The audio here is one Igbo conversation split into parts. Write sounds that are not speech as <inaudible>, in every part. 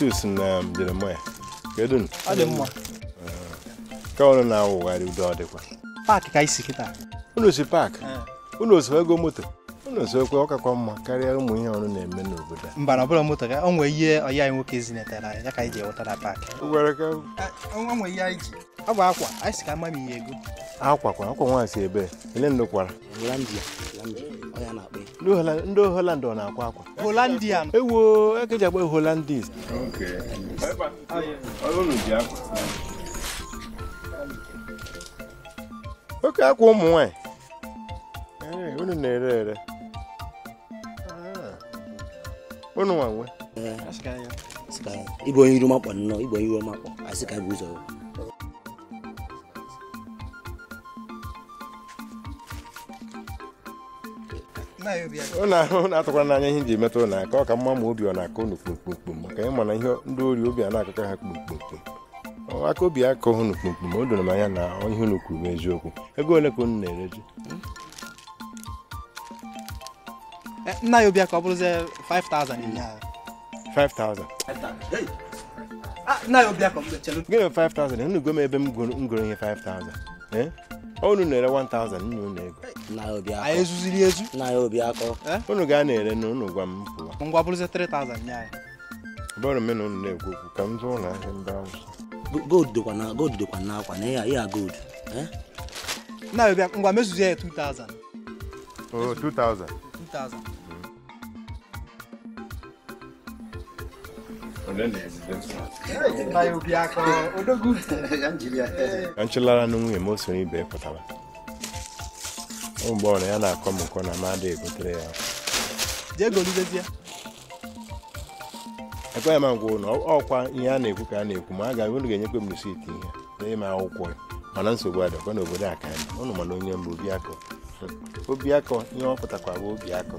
Titus eh, eh, na Jeremaya kedu ọ dị mma ka ụnụ na-awụgharị udo ọ dịkwa paakị ka isi kịta unu si paakị unu ego moto unu osikwe ọkakwa mma karịa ụmụ ihe ọrụ na-eme n'obodo a mba na ọbụla moto ka o nwee ihe ọya anyị nwoke zinetara ya ka anyị ji ewetara paakị ọ bụ akwa anyị si ka ama ihe ego akwa kwa akwa si ebe ele kwara. ndị holand ọ na-akwa akwa holandian ewo ekeji holandis oke akwa ụmụ nwanyị unu na-ere ere ah. unu nwa nwe onye iru makpọ nnọọ onye iru ụnụ atụkwara n'anya ihe ji emetụ ụnụ aka ọ ka mma ma obi ọ na-akọ ụnụ kpumkpumkpum maka ịma na ihe ndị ori obi a na-akụkọ ha kpumkpumkpum aka obi akọ ụnụ kpumkpum o doro m anya na ihe ụnụ kwuru eziokwu ego ole ka ụnụ na-ere ji eh, nna ya obi aka ọ bụrụzie 5000 ah, gịnị 5000 unu gome ebe m goro ihe 5000 Eh? unu na-ere 1000 unu na-ego anyị ezuziri ezu eh? unu ga na-ere na unu gwa m pụọ ngwa bụrụzi 3000 nye anyị bụrụ mena unu na-ekwu okwu ka m ụlọ ahịa mba gold dịkwa na na eh? ya gold na ngwa mezuzi ya 2000 2000 nchụlara na nwunye m o ibe pụtara ụmụgbọrọ ya na-akọ m nkọ na mmadụ egotere ya ekweghị m agwa na ọkwa ihe a na-ekwu ka a na-ekwu ma a ga unu ga-enyekwe m risiti ihe n'ime akwụkwọ mana nsogbu adịkwa n'obodo aka ụnụ mana onye mbụ obi akọ ihe ọ pụtakwa bụ akọ.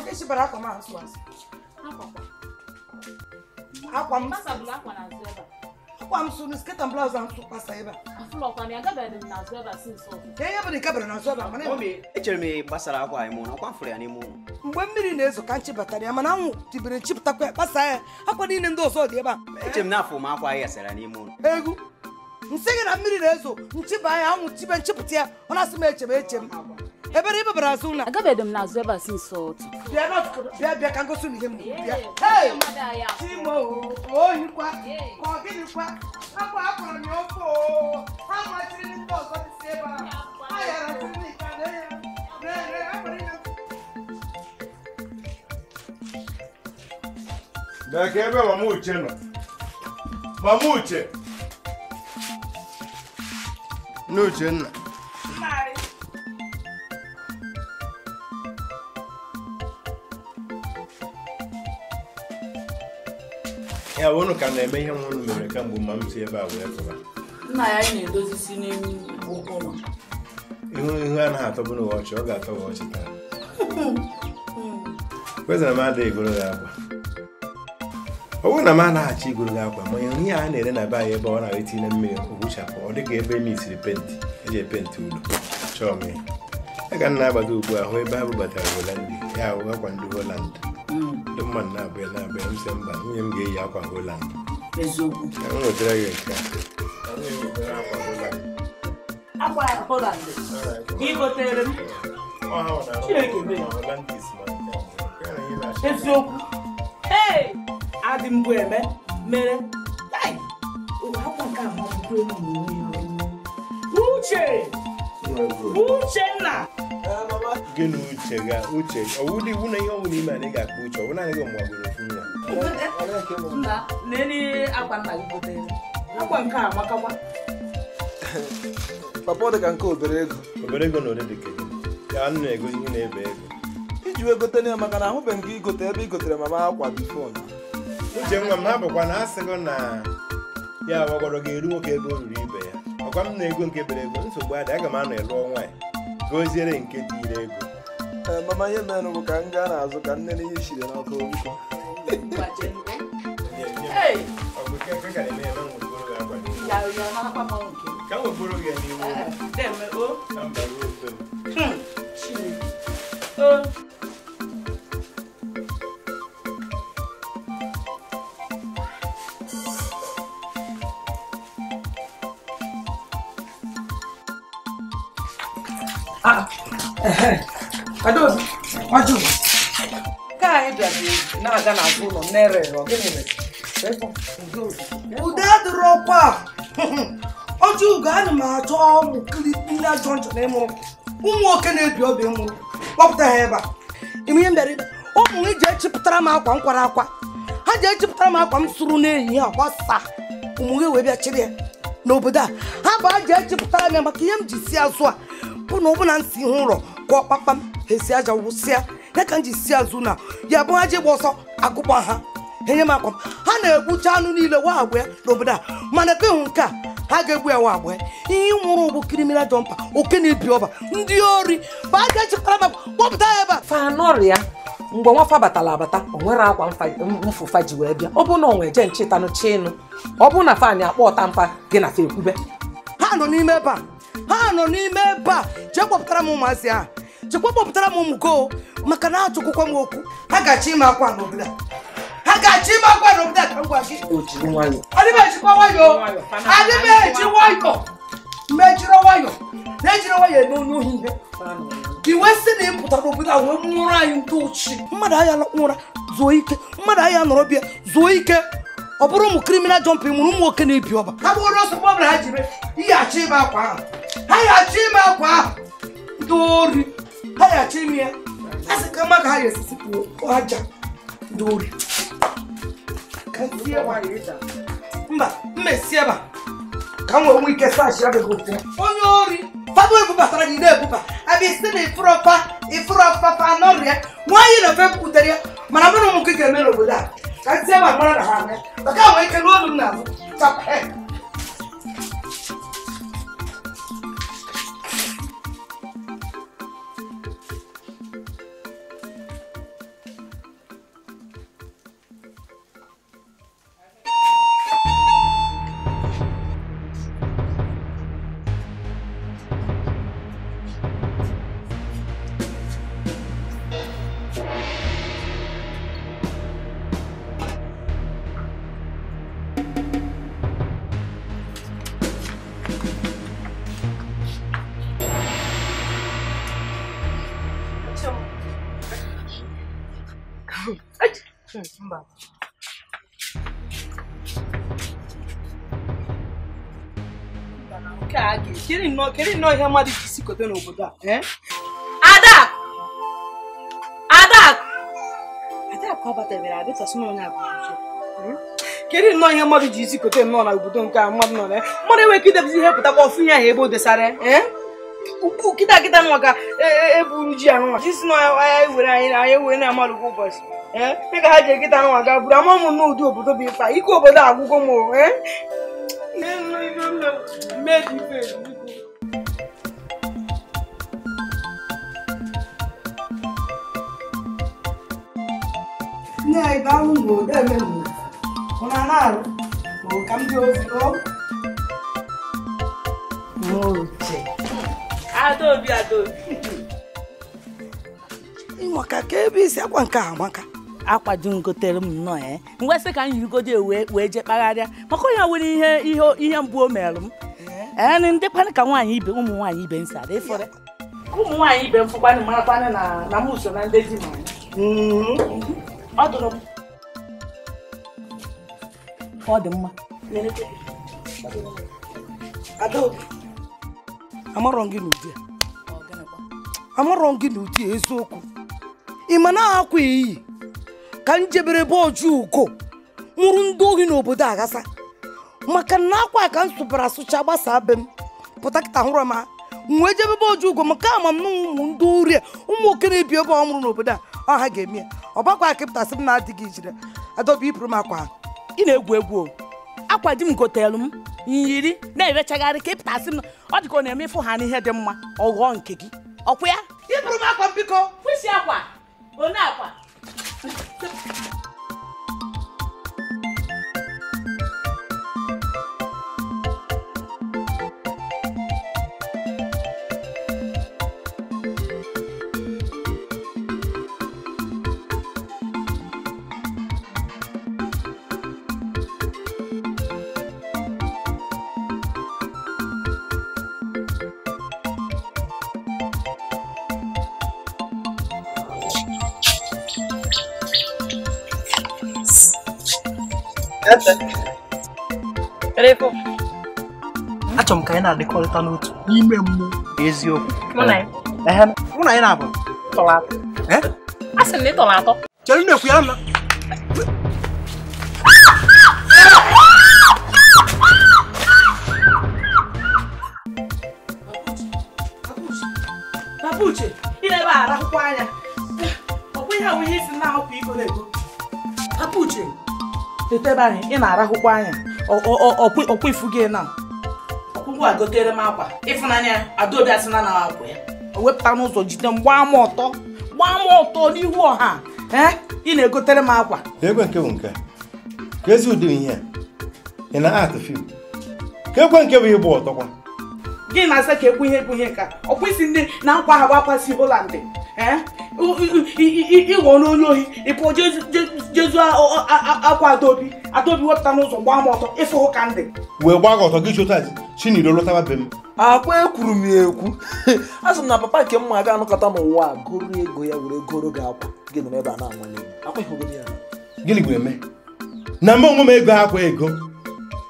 Nkechi bara akwa m asụ asụ. Akwa m akwa m sụrụ sket and ahụ tụkwasa ebe a ihe bụ nke bara n'azụ ebe a mana echere m gbasara akwa anyị mụrụ akwa mfụrụ ya n'ime ụlọ mgbe mmiri na-ezo ka batara ya mana anwụ ya kpasa ya akwa niile ndị ọzọ dị ebe a echere m na afọ m akwa n'ime ụlọ egwu nsị gị na mmiri na-ezo nchiba ya anwụ chibe nchipụta ya ọ na-asị m eche m eche m ebere ba bara suna aga be dem na zo ba sin so to na ko be be kan go suni gemu hey timo o yin kwa ko gini kwa akwa akwa mi ofo ha ma tiri ni to so ti se ba ayara tiri ni kan de re re abere na da ke wa mu che no ba mu che no che ya unu ka na-eme ihe nwụrụ unu mere kemgbe mma m ebe a wee pụta nna ya anyị na-edozi isi n'elu ụlọ ihu ihu anaghị atọbụ n'ụwa ọchị ọ ga-atọ ụwa ọchị taa kwezara m adịghị igoro gị akwa ọ bụrụ na m anaghị achọ igoro gị akwa ma ihe a na-ere na be anyị ebe ọ na-ara itinye mmiri ogbuchapụ ọ dịghị ebe misiri penti eji epenti ụlọ chọọ m ya ya ka nna agbado ugbu a hụ ebe ha bubatara holandị ya ahụ akwa ndị holandị ndị mmadụ na-abịa na-abịa m mba nwunye m ga-eyi akwa holand eziokwu gị nke eziokwu ee adị eme mere akwa nke a mabụkwa enyi Uchenna gị na uche ga uche ọwụ na iwu na ihe ọnwụ n'ime anyị ga-akpa uche ọwụ naanị gị ọmụgbagoro ofu nwa papa ọ dị ka nke obere ego obere ego na ole dị kedu ya anụ na-egozi ihe na-ebe ego iji wee gote ya maka na ahụbeghị gị igote ebe ị gotere mama akwa bifo uche nwa m ha bụkwa na asịgo na ya agbagọrọ ga-eru nwoke ebe o ruru ibe ya agwa m na ego nke bere ego nsogbu adị aga m anọ ịlụ nwaanyị goziere nke dị ire ego eh, mama ihe mere bụ ka m gaa na-azụ ka nne na ihe siri n'ọkụ nkụ ka Adaobi, ọjụ. na-aga ụlọ Ude ọkwa. Ọjụ ana m achọ ụmụ kilipi ajọ jọnjọ na ịmụrụ. Ụmụ nwoke na-ebi obi mụrụ. Kpọpụta ha ebe a. ihe mere, ụmụ m ji echipụtara m akwa akwa. Ha ji echipụtara m akwa m sụrụ n'ehihie akwa saa. Ụmụ gị wee bịa ya n'obodo a. Ha bụ a ji m ya ihe m ji si azụ bụ na ọbụna nsi ihe ụlọ kụọ kpakpam ha esi aja wụsịa ya ka m ji si azụ na ya bụ ha ji gba ọsọ agụkpa ha enye m akwa ha na-egbucha anụ niile wa agba ya n'obodo a mana kehụ nke a ha ga-egbu ya wa agba ya ihe nwụrụ bụ kriminal jọmpa oke na-ebi ọba ndị ori bụ a ga-echekwara m kpọpụta ya ebe a fanọrịa mgbe nwafa batara abata o nwere akwa mfụfa ji wee bịa ọ bụ na onwe je nchetanụ ọ bụ na fan akpọ ọta mfa gị na fa ekwube ha nọ n'ime ebe a ha nọ n'ime ebe a jee kpọpụtara m ụmụazị ahụ chekwa kpọpụtara m ụmụ go maka na atụkwụkwa m okwu ha ga-achọ ime akwa n'obodo a ha ga-achọ ime akwa n'obodo a ka m gwa gị adịbechikwa nwayọ adịbechi nwayọ mejiri nwayọ na-ejiri nwayọ eme onye ohi ihe iwe si na ịpụta n'obodo a wee nwụrụ anyị ndị ochie mmadụ agha lakpụ zuo ike mmadụ agha nọrọ bịa zuo ike ọ bụrụ ụmụ kriminal jọmpin mụrụ ụmụ nwoke na-ebi ọba ha bụrụ ọsọ gbọbara ha jiri ihe achọ ime akwa ahụ ha ya achọ ime akwa ahụ ndị ori ha ya achọ ime ya a sị ka mma ka ha ya esisi kwuo aja ndị ori mba mma esi ebe ka m wee ike sashi abịaghị ofu onye ori fado ebubatara gị na-ebuba abịa isi na ịfụrọfa ịfụrọfa fa n'ọrịa nwaanyị na ofe butere ya mana mụ ụmụ nke ga-eme n'obodo a ka ntị ebe a mara na ha anya maka ahụ ike e n'olu m na-azụ tap head não nnọọ ihe mmadụ ji sikote n'obodo a ada ada adakụ abatabere adịtasụnanya bụ kedu nnọọ ihe mmadụ ji sikote nnọọ na não nke a não não não, mmadụ enweghị idebezi ihe pụtakwa não, ihe ahụ ebe o desara ukwu kịta kịta nwa ka eburu ji anụnwa jisi na anya were anyị na anya were na-amalụ kwa ụbọchị ee eh? ka ha ji ekịta nwa ga buru ama ụmụ nna ụdị é? bụ ịkpa ike obodo agwụgo m ee nne ya ibe anwụ ma odo eme ma ụna na-arụ ma ka m dị ozugbo n'oche adaobi adaobi ịmaka ka ebe isi akwa nke a amaka akwa di m gotere m nnọọ ya eh? mgbe sị ka m yirigodo wee wee je kpagharịa maka onye nwere ihe ihe ihe mgbu o merụ m ee eh? eh, ndị kwanị ka nwaanyị ibe ụmụ nwaanyị ibe m sara ịfọrọ ụmụ nwaanyị ibe m fụkwanị marakwanị na na m usoro na ndị di m mm-hmm. ọ dụrụ m ọ dị mma amarọ gị n'ụdị eziokwu ị ma na-akwa iyi ka njebere be oju ugo nwụrụ ndị ohi n'obodo aghasa maka na akwa ka m sụbara asụcha gbasaa be m pụta kịta hụrụ m ha m wee jebebe oji ụgwọ maka m na ụmụ ndị uri ụmụ oke na-ebi ebe ọ mụrụ n'obodo a ọha ga-eme ya ọgbakwa akịpụta sị m na-adịghị ijire adọba iburu m akwa ị na-egwu egwu akwa di m m yiri na-erechagharị ka ịpụtasị m ọ dịka ọ na-eme ịfụ ha n'ihe dị mma ọ ghọọ nke gị ọkwụ ya Ipụrụ m akwa biko kwụsị akwa one akwa achọrọ m ka anyị na-adịkọrịta n'otu n'ime mmụọ na eziokwu mụ na anyị na-abụ tọrọ atọ eh? asị m na ị tọrọ atọ chere na ekwu ya na ebe anyị, ị na-arahụkwa anya ọkwa ifu gị na ọkpụkpụ a gotere m akwa ịfụnanya adaobi asịna na akwa ya o wepụta n'ụzọ jide m gbaa m ọtọ gbaa m ọtọ n'ihu ọha ị na-egotere m akwa egwe nke bụ nke ka ezi ụdị ihe ị na atụ fim ka ekwe nke bụ ịbụ ọtọkwa gị na-asa ka ekwu ihe bụ ihe nka ọkpụ isi ndị na nkwa ha gbakwasị holandị ịghọ n'onye ohi ịpụ jezu akwa adobi adobi wepụta n'ụzọ gbaa m ọtọ ịfụhụ ka ndị wee gbaa gị ọtọ gị chụta chiniro lọtaba be m akwa ekwuru m ya ekwu a <laughs> sị m na papa nke mma aga anụkọta m ụwa a goro ego ya were goro gị akwa gị nọrọ ebe a na-anwale gịnị wee mee na mụ onwe ego akwa ego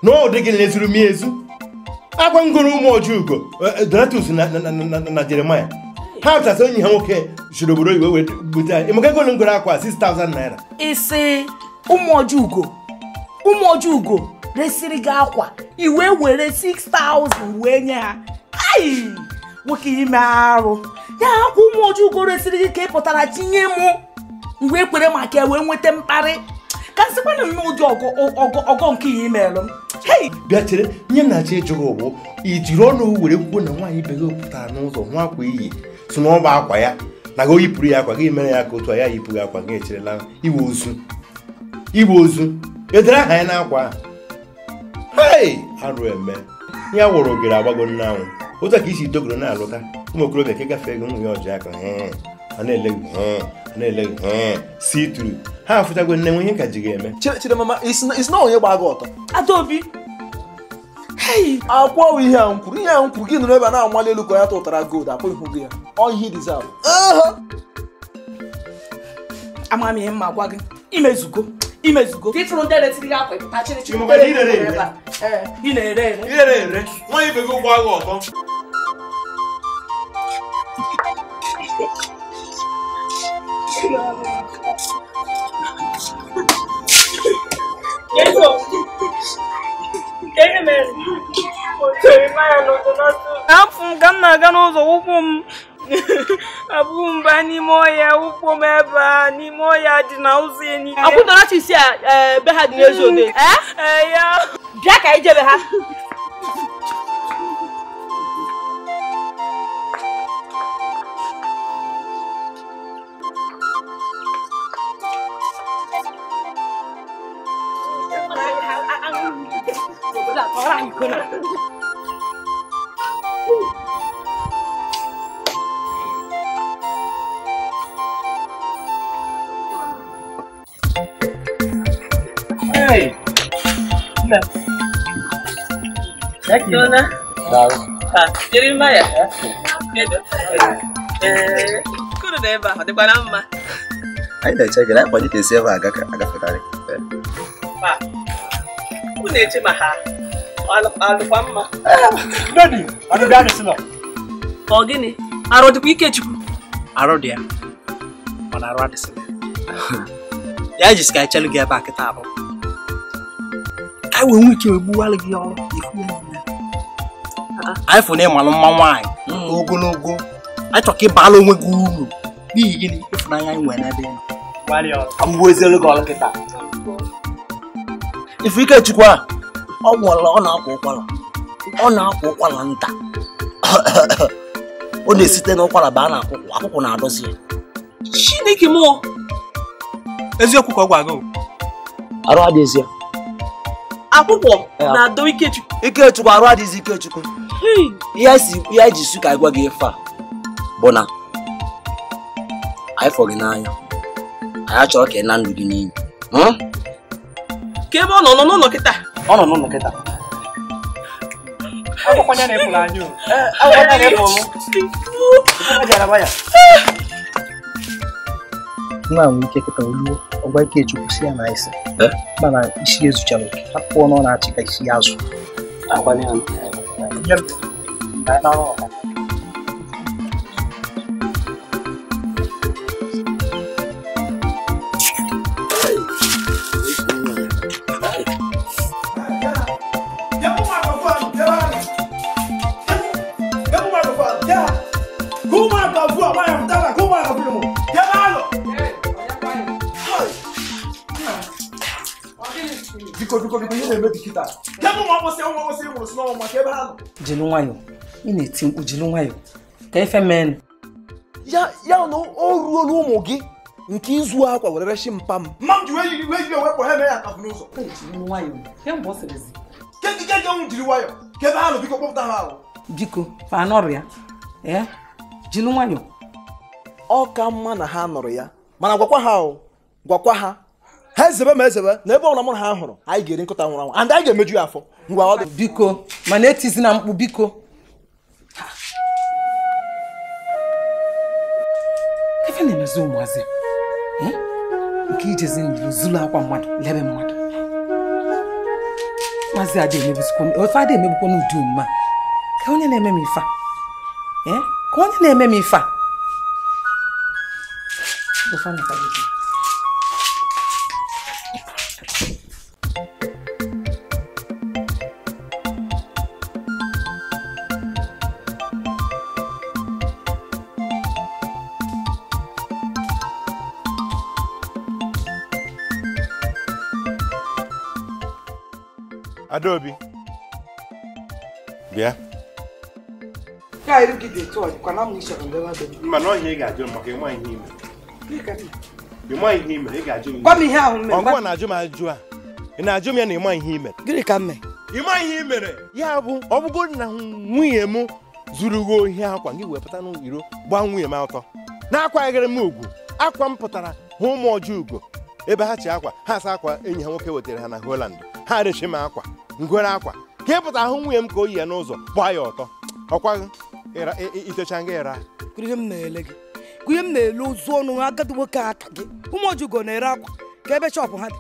na ọ dị gị lezuru m ezu agwa m goro ụmụ oji eh, eh, donatus na jeremaya ha pụtasị onye ha nwoke jiri obodo oyibo wee bute anyị emeka egolu ngoro akwa 6000 naira isi ụmụoji ugo resiri gị akwa iwe were 6000 wee nye ha ai nwoke ime arụ ya akwa ụmụoji ugo resiri gị ka ị pụtara tinye mụ mgbe kwere maka e wee nweta mkparị ka sịkwana m n'ụdị ọgọ nke ya imelụ bịa chere nye nnachi jụrụ ụgbụ i jiri ọnụ were kwuo na nwaanyị bego pụtara n'ụzọ nwa akwa iyi si na akwa ya na gị oyipụrụ ya akwa gị mere ya ka otu a ya yipụghị akwa gị echerela iwe ozu iwe ozu edere aha ya n'akwa hei arụ eme ya wụrụ ogere agbago nne anwụ otu a ka isi dogoro na-alụta ụmụ okorobịa ka gafee ego nwunye ọjị aka a na-ele gị a na-ele gị si turu ha afụtago nne nwe ihe ka ji ga-eme chidemama isi na onye gbaa gị ọtọ adaobi akwọwụ ihe a nkwuru ihe a nkwuru gị nụrụ ebe a na-amali elu ka ya tụtara gold akwụ ihu gị ya ọ ihe dizal ama m ihe gwa gị imezugo imezugo akwa Yeah. afọ m ka m na-aga n'ụzọ ụkwụ m <laughs> abụghị mgbe n'ime ọhịa ụkwụ m ebe a n'ime ọhịa dị na ụzọ enyi a eh, ha dị <laughs> eh, ya ka ha لا راح يكون Hey! لا لكن jiri mma ya kuru na ebe ahụ dịkwara mma anyị na-eche gị na akpọnye ka esi ebe agafe karị unu na-eche ma ha alụkwa mma ọ gịnị arụ dịkwa Ikechukwu arụ dị ya mana arụ adịsịla ya jisi ka anyị chelụ gị ebe a kịta abụ ka anyị wee nwee ike egbuwalụ gị ọrụ anyị fụ na ịmalụ mma nwaanyị hmm. ogologo achọ chọ ka ịbala onwe gị uru n'ihi gịnị ịfụnanya anyị nwere n'ebe ị nọ Ifekechukwu a ọ nwụọla ọ na-akwa ụkwara ọ na-akwa ụkwara nta <coughs> ọ na-esite n'ụkwara ba a na-akwụkwọ akwụkwọ na-adọzi chineke mụọ eziokwu ka ọ gwa gị arụ adịghịzi ya akwụkwọ na-adọ Ikechukwu Ikechukwu arụ adịghịzi Ikechukwu ihe anyị ji su ka anyị gwa gị ife a bụ na anyị fọghị n'anya anyị achọrọ ka ị na ndụ gị n'iyi hmm? ka ebe ọ nọ nọ n'ụlọ kịta ọ nọ n'ụlọ kịta akwụkwọ ya na-efula anya akwụkwọ não na não m jaraba ya nwa nwee ike kịta oluo ọgwa ike chukwu si não na isi mana isso eu não não ọnụ não achị ka não ya azụ agbalị não biko ihe na-eme si ha nọ nwayọ ị na-eti mkpu nwayọ ka efe mee ya ya na o ruola ụmụ gị nke izu akwa were mpa m mma m ji wee jiri wee jiri ha eme ya ka n'ụzọ jiri nwayọ ha biko kpọpụta ha ahụ biko ya ee nwayọ ọ ka mma na ha nọrọ ya mana gwakwa ha gwakwa ha ha ezebe ma ezebe na ebe ọbụla mụ ha hụrụ anyị ga-eri nkụta nwụrụ anwụ and anyị ga-emeju ya afọ ngwa ọ biko mana etizi na mkpu biko ife na-emezi ụmụazị eh? nke ijezi ndụ zuru akwa mmadụ lebe mmadụ maazị adị ofe adị emebukwana ụdị mma ka onye na-eme m ife ka onye na-eme m ife a eh? Adaobi bịa mana ọhịa ị ga-ajụ maka ịma ihe ime ịma ị ga-ajụ m ọgwụgwa na-ajụ m ajụjụ a ị na-ajụ m ya na ịma ihe ime gịnị ka mme. mee ịma ihe ị mere ya bụ ọ na nwunye m zuru gị ohi akwa gị wepụta n'iro gbaa nwunye m ọtọ na-akwaghịrị m ugwu akwa m pụtara hụ ụmụ ọjọọ ugo ebe ha chi akwa ha asa akwa enyi ha nwoke wetara ha na holand ha rechi m akwa ngwere akwa ka ịpụta ahụ nwunye m ka o yi ya n'ụzọ gbaa ya ọtọ ọkwa itecha nga ịra ihe m na-ele gị ihe m na-ele ozu ọnụ ha agadi nwoke aka gị ụmụ ojugo na-ere akwa ka ebe shọpụ ha dị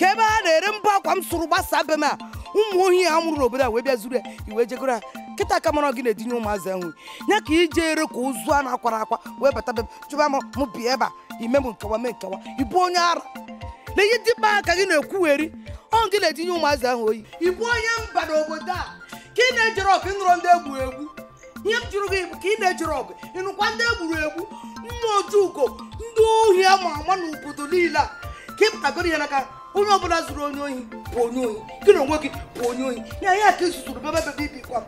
ka ebe ha na-ere mbọ akwa m sụrụ gbasaa be m a ụmụ ohi ha nwụrụ n'obodo a wee bịa zuru ya iwe jegoro ha kịta ka mara gị na-edinye ụmụazị ahụ ya ka ije ere ka ozu a na-akwara akwa wee bata be m chụba m bịa ebe a ime m nkewa mee nkewa ịbụ onye ara na ihe dị mma ka gị na-ekwugheri ọ gị na-etinye ụmụazị ahụ oyi ị onye mba n'obodo a ka ị na-ejere ọgụ ịnụrọ ndị egwuru egwu ihe m jụrụ gị bụ ka ị na-ejere ọgụ ịnụkwa ndị egburu egwu mma otu uko ndị ohi a ma ama n'obodo niile a ka ị ịpụtagoro ihe n'aka onye ọbụla zụrụ onye ohi bụ onye ohi gị na onwe gị bụ onye ohi na ihe ka izuzuru bebe bebe ibikwa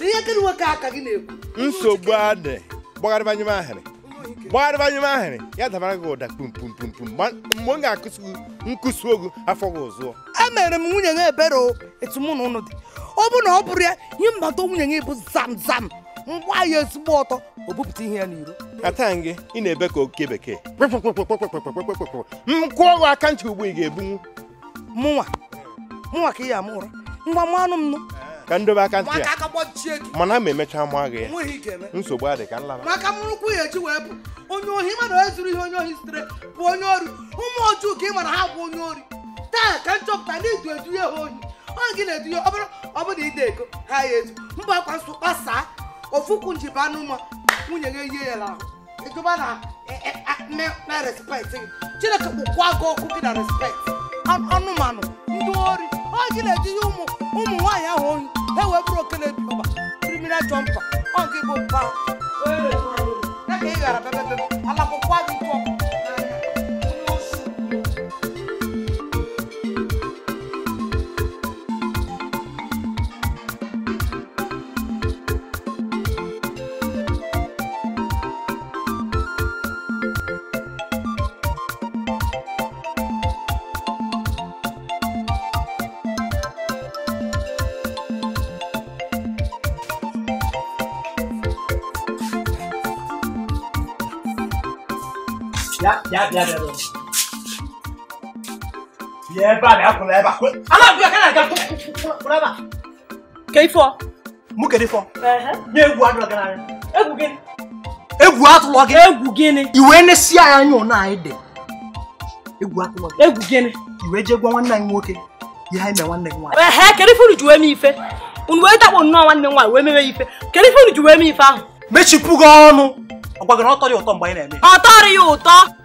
ihe gị nwoke aka gị na-ekwu nsogbu adị gbagharịba nye m ahịrị gbagharịba nye m ahịrị ya dabara gị ụda kpumkpumkpumkpum mgbe m ga-akụsi nkụsi ogu afọ gị ọzọ emere m nwunye ya ebere etu mụ na ụnụ dị ọ bụrụ na ọ bụrụ ya nye mmata nwunye ya bụ zam zam mgba ya ezigbo ọtọ o ihe ya n'iro ata gị ị na-ebe ka oke bekee m kụọ gị aka ntị ugbu ị ga-ebunwu mụnwa mụnwa ka ị ya amụ ụra ngwa mụ anụ m nụ ka m dobe aka ntị ya mana ma emechaa mụ agha ya nsogbu adị ka nlaba maka mụrụkwu ya eji wee bụ onye ohi mana onye zuru ihe onye ohi sitere bụ onye ori ụmụ ọjụ ka ị mara ha bụ onye ori taa ka nchọpụta na idu eduye ha ohi onye gị na-eduye ọbụrụ ọbụrụ ide ego ha ya ezu mba akwa nsọ kpasaa ofukwu njiba anụma nwunye gị yie ya n'ahụ ịjụba na na respekt gị chineke kpụkwa gị ọkụ gị na respekt anụmanụ ndị ori onye gị na-eduye ụmụ ụmụ nwaanyị ahụ ohi Hey, ewe the ọba criminal jumper ọnkị bụ mpa na ka ị ghara bebebe alakwụkwọ biya biya gini. Iwe je gwa nwanne anyị nwoke. Ihe anyị e mee nwanne gị nwaanyị. Ehe kedu ife unu ji wee mee ife? Unu wee dakpo nnọọ nwanne m nwaanyị wee mewe ife. Kedu ife unu ji wee mee ife ahụ? Mechipu gị ọnụ. Ọ gwa gị na ọ tọrọ na-eme. Ọ tọrọ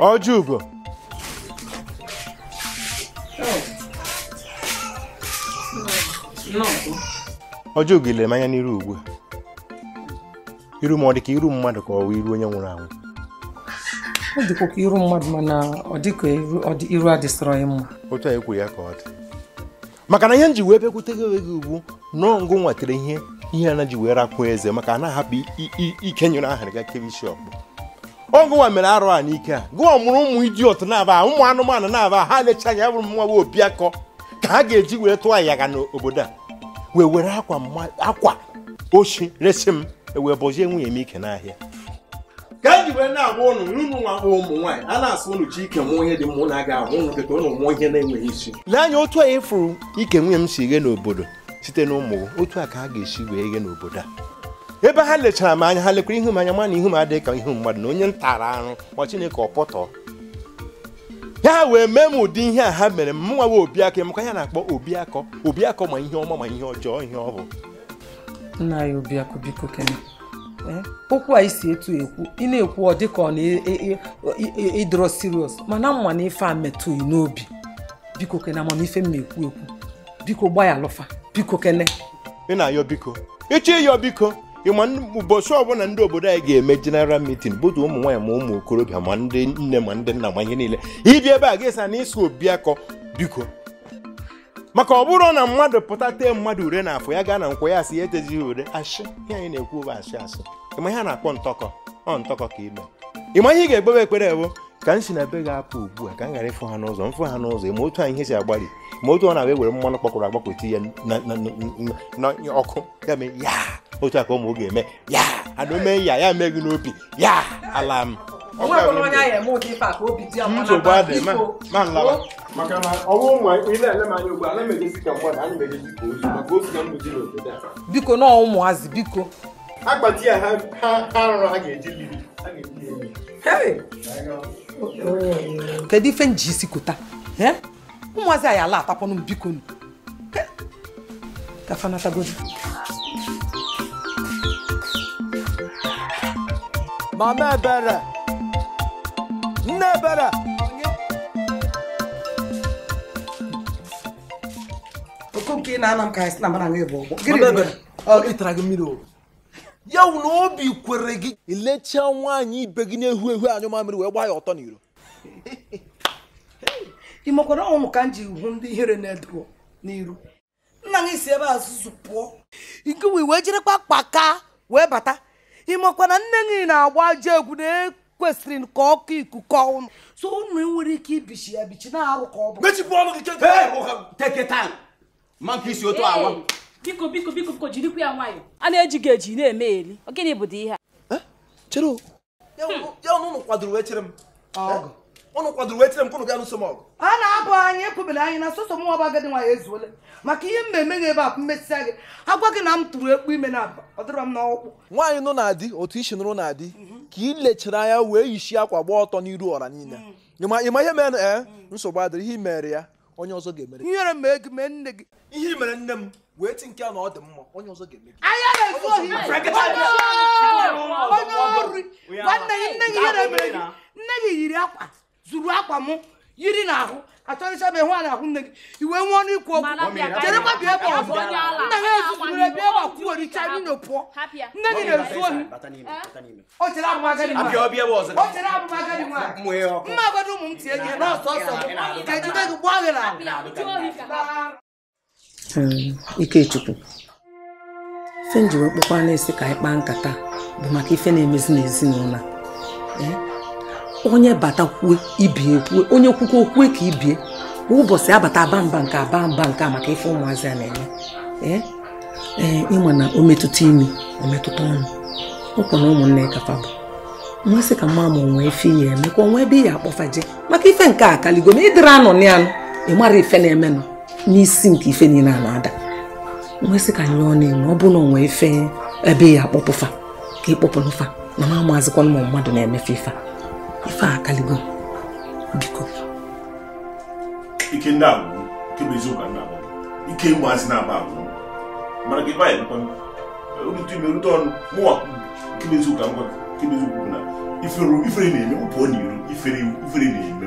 Ojugo. Ojugo ile manya n'iru ugbu iru ma ọ dị ka iru mmadụ ka ọ wụ iru onye nwụrụ anwụ ọ dịkwa ka iru mmadụ mana ọ dị ka iru adịsịrọ ya mma otu a ekwu ya ka ọ dị maka na ihe m ji wee bịakwute gị gị ugbu nọọ ngụ nwatere ihe ihe a na ji wee rakwuo eze maka a na-ahapụ ike nyere ahịrị ga kebe isi ọkpụ ọgụwa mere arụ a n'ike a gụwa mụrụ ụmụ idiot na-aba ụmụ anụmanụ na-aba ha lecha anya bụrụ mmanwe obiakọ ka ha ga-eji wee tụọ ayaga n'obodo a wee were akwa ochi resi m e wee bọzie nwunye m ike n'ahịa ka eji wee na-agwa ụnụ n'ụnụ nwa akpọ ụmụ nwaanyị a na-asụ ụnụ ji ike mụọ onye dị mụ na-aga ahụ ụnụ keta ụnụ mụọ ihe na-enweghị isi lee anya otu a ịfụrụ ike nwunye m si ghe n'obodo site n'ụmụ ụmụ otu a ka ha ga-esi wee ghe n'obodo a ebe ha lechara m anya ha lekwara ihu m anya ma ihu m adịghị ka ihu mmadụ na onye ntara arụ ma chineke ọpọtọ ya wee mee m ụdị ihe a ha mere m nwawa obiakọ maka ya na-akpọ obiakọ obiakọ ma ihe ọma ma ihe ọjọọ ihe ọ bụ nna ya obiakọ biko kene eh, okwu a isi etu ekwu ị na-ekwu ọ dịka ọ na-ịdọrọ e, e, e, serious mana mma na ife a metụghị n'obi biko kene amamife m na-ekwu ekwu biko ya alụfa biko kene ị na-ayọ biko ịchọ ịyọ biko ịma ụbọchị ọbụla ndị obodo anyị ga-eme jeneral mitin butu ụmụ nwaanyị ma ụmụ okorobịa ma ndị nne ma ndị nna ma ihe niile ibi ebe a ga-esa na obi akọ biko maka ọ bụrụ na mmadụ pụta tee mmadụ ure na afọ ya gaa na nkwa ya asị ya etezighị ure ashị ihe anyị na-ekwu bụ ashị ashị ịma ihe a na-akpọ ntọkọ ọ ntọkọ ka ime ịma ihe ị ga ekpebe ekpere ewo ka m si na be ga-apụ ugbua ka m ghara ịfụ ha n'ụzọ mfụ ha n'ụzọ ma otu anyị ihe si agbalị ma otu ọ na-abịa ewere mmanụ kpọkwụrụ agbakọti ya na ọkụ ya mee ya otu a ka ụmụ oge eme ya ana omee ya ya mee gị n'obi ya ala m nsogbu adị ma nlaba biko na ụmụazị biko ya ha nrọ ha ga-eji ha ga-eji kedu ife m ji isi kụta ụmụazị anyị ala atapọnụ m biko nu kafanatagozi mama ebere nne ebere okoke ị na-ana m ka anyị si na mara nwe bụ ọgbọ gịnị ọ ịtara gị mmiri ogo ya wụ na obi kwere gị ilechaa nwaanyị ibe gị na-ehu ehu anyụ mamịrị wee gbaa ya ọtọ n'iro <laughs> ị ọnwụ ka m ji hụ ndị ihere na-edo n'iru nna gị si ebe azụzụ pụọ nke wee wee jirekwa kpaka wee bata ị makwana nne gị na-agba ajọ egwu na-ekwesịrị ka ọkụ ikuku ọnụ so ụnụ nwere ike ibichi ya bichi na-arụ ka ọ bụ mechipụ ọnụ gị teketa ma nke isi otu awa biko biko biko biko jirikwa ya nwayọ a na-eji gị eji na-eme eri gịnị bụ ihe a chere ya hmm. ụnụ kwadoro wee chere m ụnụ kwadoro wee chere m kụnụ ga nụso m ọgụ a na-abụ anyị ekwubere anyị na sọsọ mụnwa bụ agadi nwanyị ezuole maka ihe eme gị ebe a mmesịa gị agwa gị na m tụrụ ekpu ime na aba ọ dịrọ m n'ọkpụkpụ nwaanyị nụ na-adị otu isi nụrụ na-adị ka ị lechiri anya wee yishi akwa gba ọtọ n'iru ọra niile hmm. ịma ihe mere nsogbu adịrị ihe imere ya onye ọzọ ga-emere ihe mere nne gị ihe mere nne m wee ti nke a na ọ dị mma onye ọzọ ga-eme gị onye ọrụ nwanne gị nne gị ihe na-emere gị nne gị yiri akwa zuru akwa mụ yiri n'ahụ achọrịcha m ịhụ a n'ahụ nne gị iwe nwee ọnụ ikwu okwu cherekwa bịa ebe ọzọ nna ha ezuzuru ebe ebe kwuoricha nino pụọ nne gị na-ezu ohi o chere abụmagadi nwa mma agadi ụmụ m tie gị n'ọsọ ọsọ m ga-ejide gị gbaa gị n'ahụ Hmm, Ikechukwu ife nji wee kpọkwa na-esi ka anyị kpaa nkata bụ maka ife na-emezi n'ezinụlọ eh? onye batakwue ibie kwue onye kwukwa okwue ka ibie kwa ụbọchị abata aba mba nke aba mba nke a maka ife ụmụazị a na eme ee eh? eh, ịnwe na o metụta imi o metụta ọnụ ụkwa na ụmụnne kafa bụ mmasị ka mma ma onwe ife ihe eme onwe ebe ihe akpọfaje maka ife nke a kaligo ma ịdịrị anọ n'anụ ị mara ife na-emenụ n'isi nke ife niile a na-ada nwesị ka nyụọ n'enwe ọ bụrụ na onwe ife ebe ya akpọpụfa ka ịkpọpụnụfa na ma amazikwa ụmụ mmadụ na-emefe ife ife a akaligo biko ike ndị agwụ nke bụ eziokwu ndị agwụ ike ịgbazị na-agba agwụ mana gị baanyị nkwa rute ime rute ọnụ mụwa nke bụ eziokwu ngwa nke bụ eziokwu na ifere na-eme ụpụ ọ na-eru ifere na-eme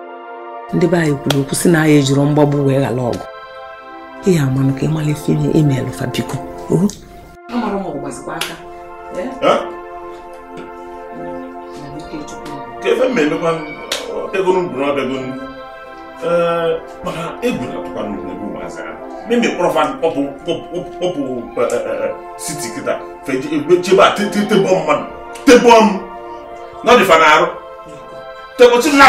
ndị be anyị kwuru okwu si na anya ejiri mgbagbu wee ghala ọgụ ihe amanụ ka ịmala ife ime imeelụ fa biko na-atụkwa m na arụ tebọchi na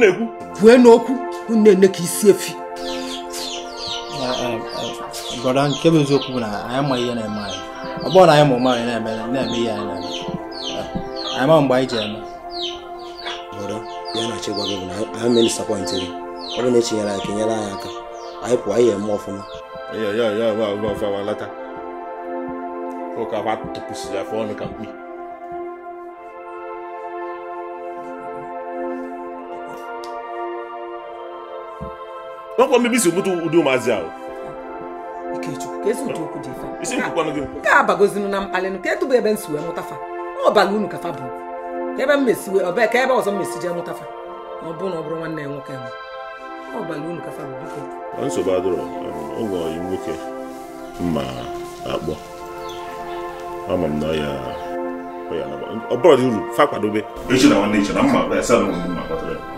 na-ekwu kwue n'okwu na-ene ka isi efi brọda eh, eh, nke bụ eziokwu bụ na anyị ma ihe na-eme anyị ọ na anyị ma ụma na-eme na-eme ihe anyị na-eme eh, anyị ma mgbe anyị ji eme brọda ya na-achọ gị bụ na anyị mee ọ bụ na-echinyere anyị ka nyere anyị aka anyị pụọ anyị eme ọfụma ya ya ya ya ya ya ya ya ya ya ya ya nwekwa mbibi si bụta ụdị ụmụazị ahụ nke a bagozinu na mkpalịnụ ka etụbụ ebe nsi wee mụtafa ọbala unu kafa bụ ka ebe mmesiwe ọbee ka ebe ọzọ mmesi jee mụtafa na ọ bụrụ na ọ bụrụ nwanne ya nwoke ahụ ọbala unu kafa bụ biko nsogbu adịrọ ụgwọ yi nwoke mma akpọ ama m na ya ọ bụrụ dị uru fa kwadobe echi na nwanne echi na mma ebe asa na ụmụ mma kpatara ya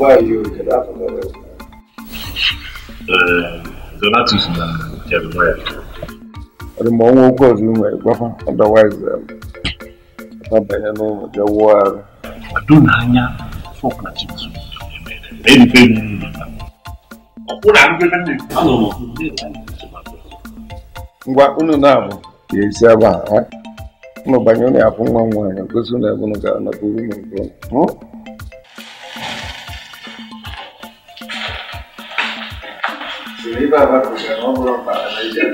why you can happen that way. Eh, donatus na jeremiah ọ dị ma ọnwa okwu ọzọ i nwere gwafa ọdọwaiz abanye n'ụlọ bịa wụọ arụ kwado n'anya fọk na chips erife m ngwa unu na-abụ ya esi ebe a unu banye unu ya afụ nwa nwaanyị gosi na ebe unu gara na buru m nke unu ibe abapụta na ọ bụrụ na iji ha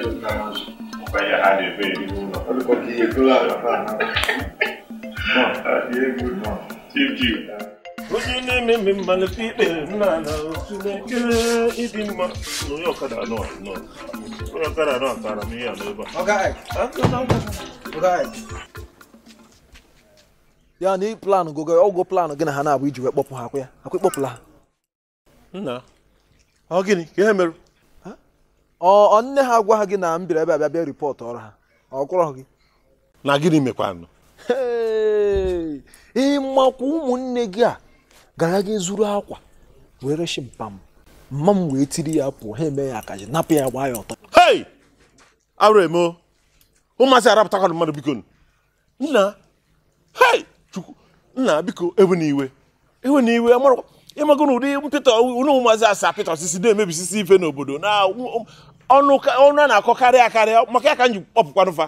ụlọ onye na-eme mmalite ikpe ịdị mma na ọkada onye ọkada atara m ihe a a ya na plan gogo ọgwụ plan gị na ha na-abụ iji wee kpọpụ ha ya ha nna ọ gịnị ka ihe ọ nne ha gwa ha gị na m ebe abịa bịa ripọtụ ọrụ ha ọ kwụrọ gị na gịnị mekwanụ ịmakwa ụmụnne gị a gara gị zuru akwa were reshi mpam mma m wee tiri ya pụọ ha eme ya akaji napụ ya gbaa ya ọtọ hei arụ eme ụmụazị arapụtakwana mmadụ biko nna chukwu nna biko ewe n'iwe ewe n'iwe amarakwa ịmago na ụdị mpịtọ unu maazị asa pịtọ osisi na-emebisisi ife n'obodo na um, ọnụ a na-akọkarị akarị maka ya ka m ji kpọpụkwanụfa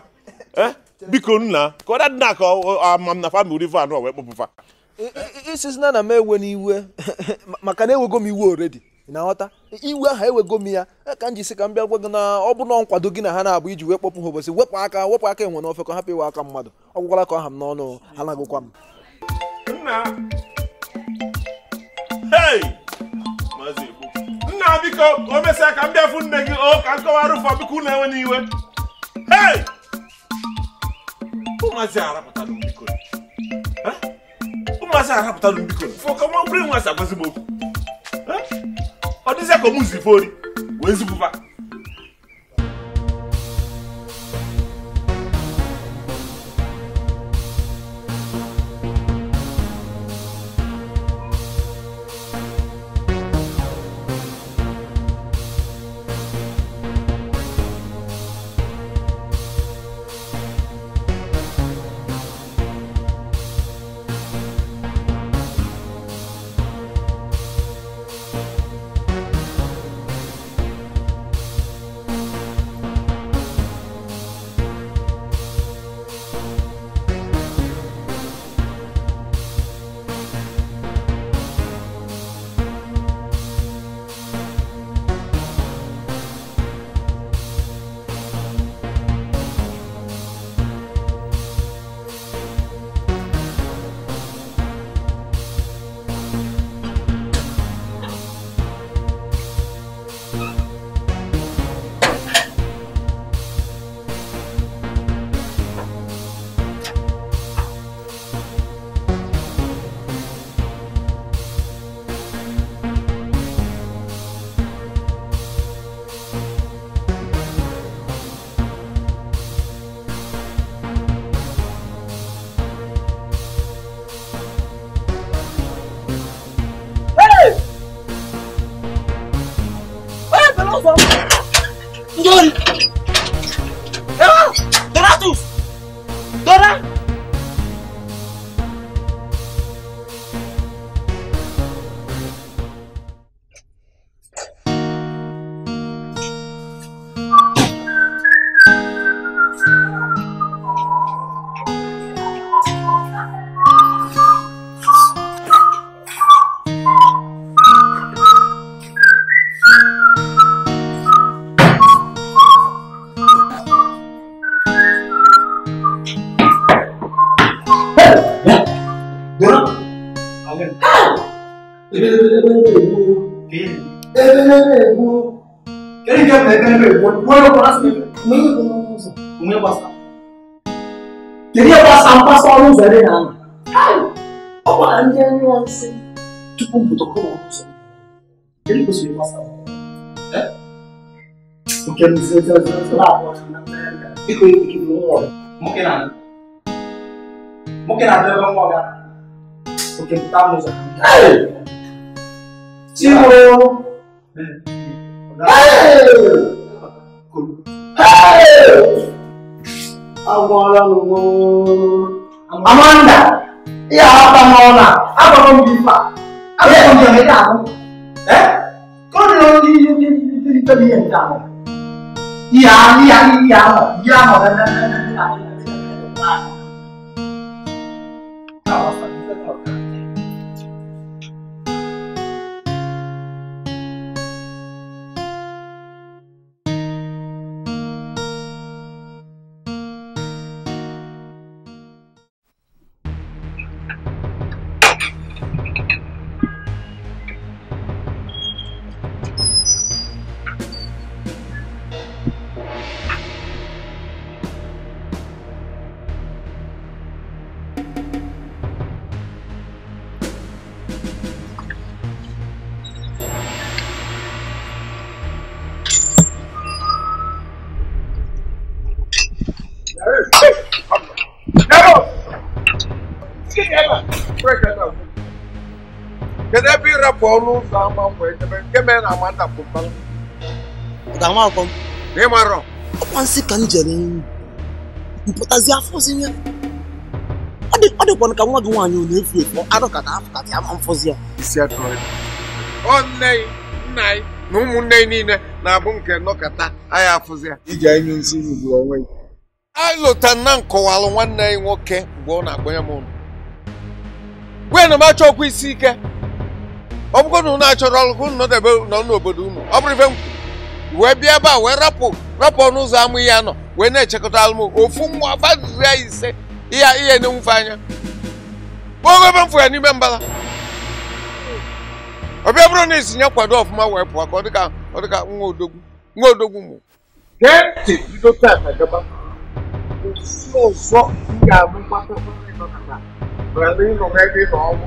eh? biko nna ka ọ dị na ka ama na famili ife anụ wee kpọpụfa isizina na m ewe n'iwe <laughs> maka na enwego m iwe oredi na nghọta iwe ahụ ewego m ya eh, ka m jisi ka m bịa gwa gị na ọ bụ na nkwado gị na ha na-abụ iji wee kpọpụ ha obosi wepụ aka wepụ aka enwe n'ofe ka hapụ iwe aka mmadụ ọ gwụkwala ka ọha m n'ọnụ ha na-agụkwa m nna biko o mesịa ka m bịa fụ nne gị o ka nkọwara ụfọ biko na-enwe n'iwe ụmụazị arapụtala mbiko ụmụazị arapụtala mbiko fọkọ nwa bụrụ nwa si agwazigbo okwu ọ dịzịa ka ọ mụzi ifori wee zipụba nebe bueno para si mwenye kuna muzo mwenye ndị kiri ya mpasa ọrụ ụzọ ebe na-anọ ọ ndị anyị ọsị tupu mpụtọkọ na ụzọ kiri kwesịrị basa nke mzi ezi ọzọ ọzọ na ịkọ ike ọrụ Agwara m Amanda, ihe aghọta m ọnụ a, agwara m gị ife a, agwara m gị ị ga-ahụ. Ka ọ dị na ndị ndị ndị ndị ndị ihe nke ahụ. Ihe ahụ, ihe ahụ, ihe ahụ, ihe ahụ, onye na-ama ndapụta ọkwa nsị ka m jere mpụtazi afọ ozi ọ dịkwana ka nwa gị nwaanyị ọ na-efu efu arụ ka na-apụta ya ma mfọzi ya nne nna anyị na ụmụnne anyị niile na-abụ nke nọkọta anyị afụzi ya iji anyị nsiri ugbu onwe anyị lụta nna m kọwalụ nwanne anyị nwoke mgbe ọ na-akpọnye m ụlọ gwe na m achọ ọkwa isi ike ọ bụgo na achọrọ ọrụ unu nọdebe nọ n'obodo unu ọ bụrụ ife m wee bịa ebe a wee rapụ rapụ ọnụ ụzọ amụ ihe nọ wee na-echekọta alụm ofu mmụọ badiri ise ihe ihe na-enwufe anya kpọọ ebe m fụ ya n'ime mbala ọbịa bụrụ na isi kwado ọfụma wee pụọ ka ọ dịka ọ dịka nwa odogwu nwa odogwu mụ gee ntị bido taa ka gaba osi ọzọ m ga-abụ mgbata ịnọ n'ebe ịnọ ọnwụ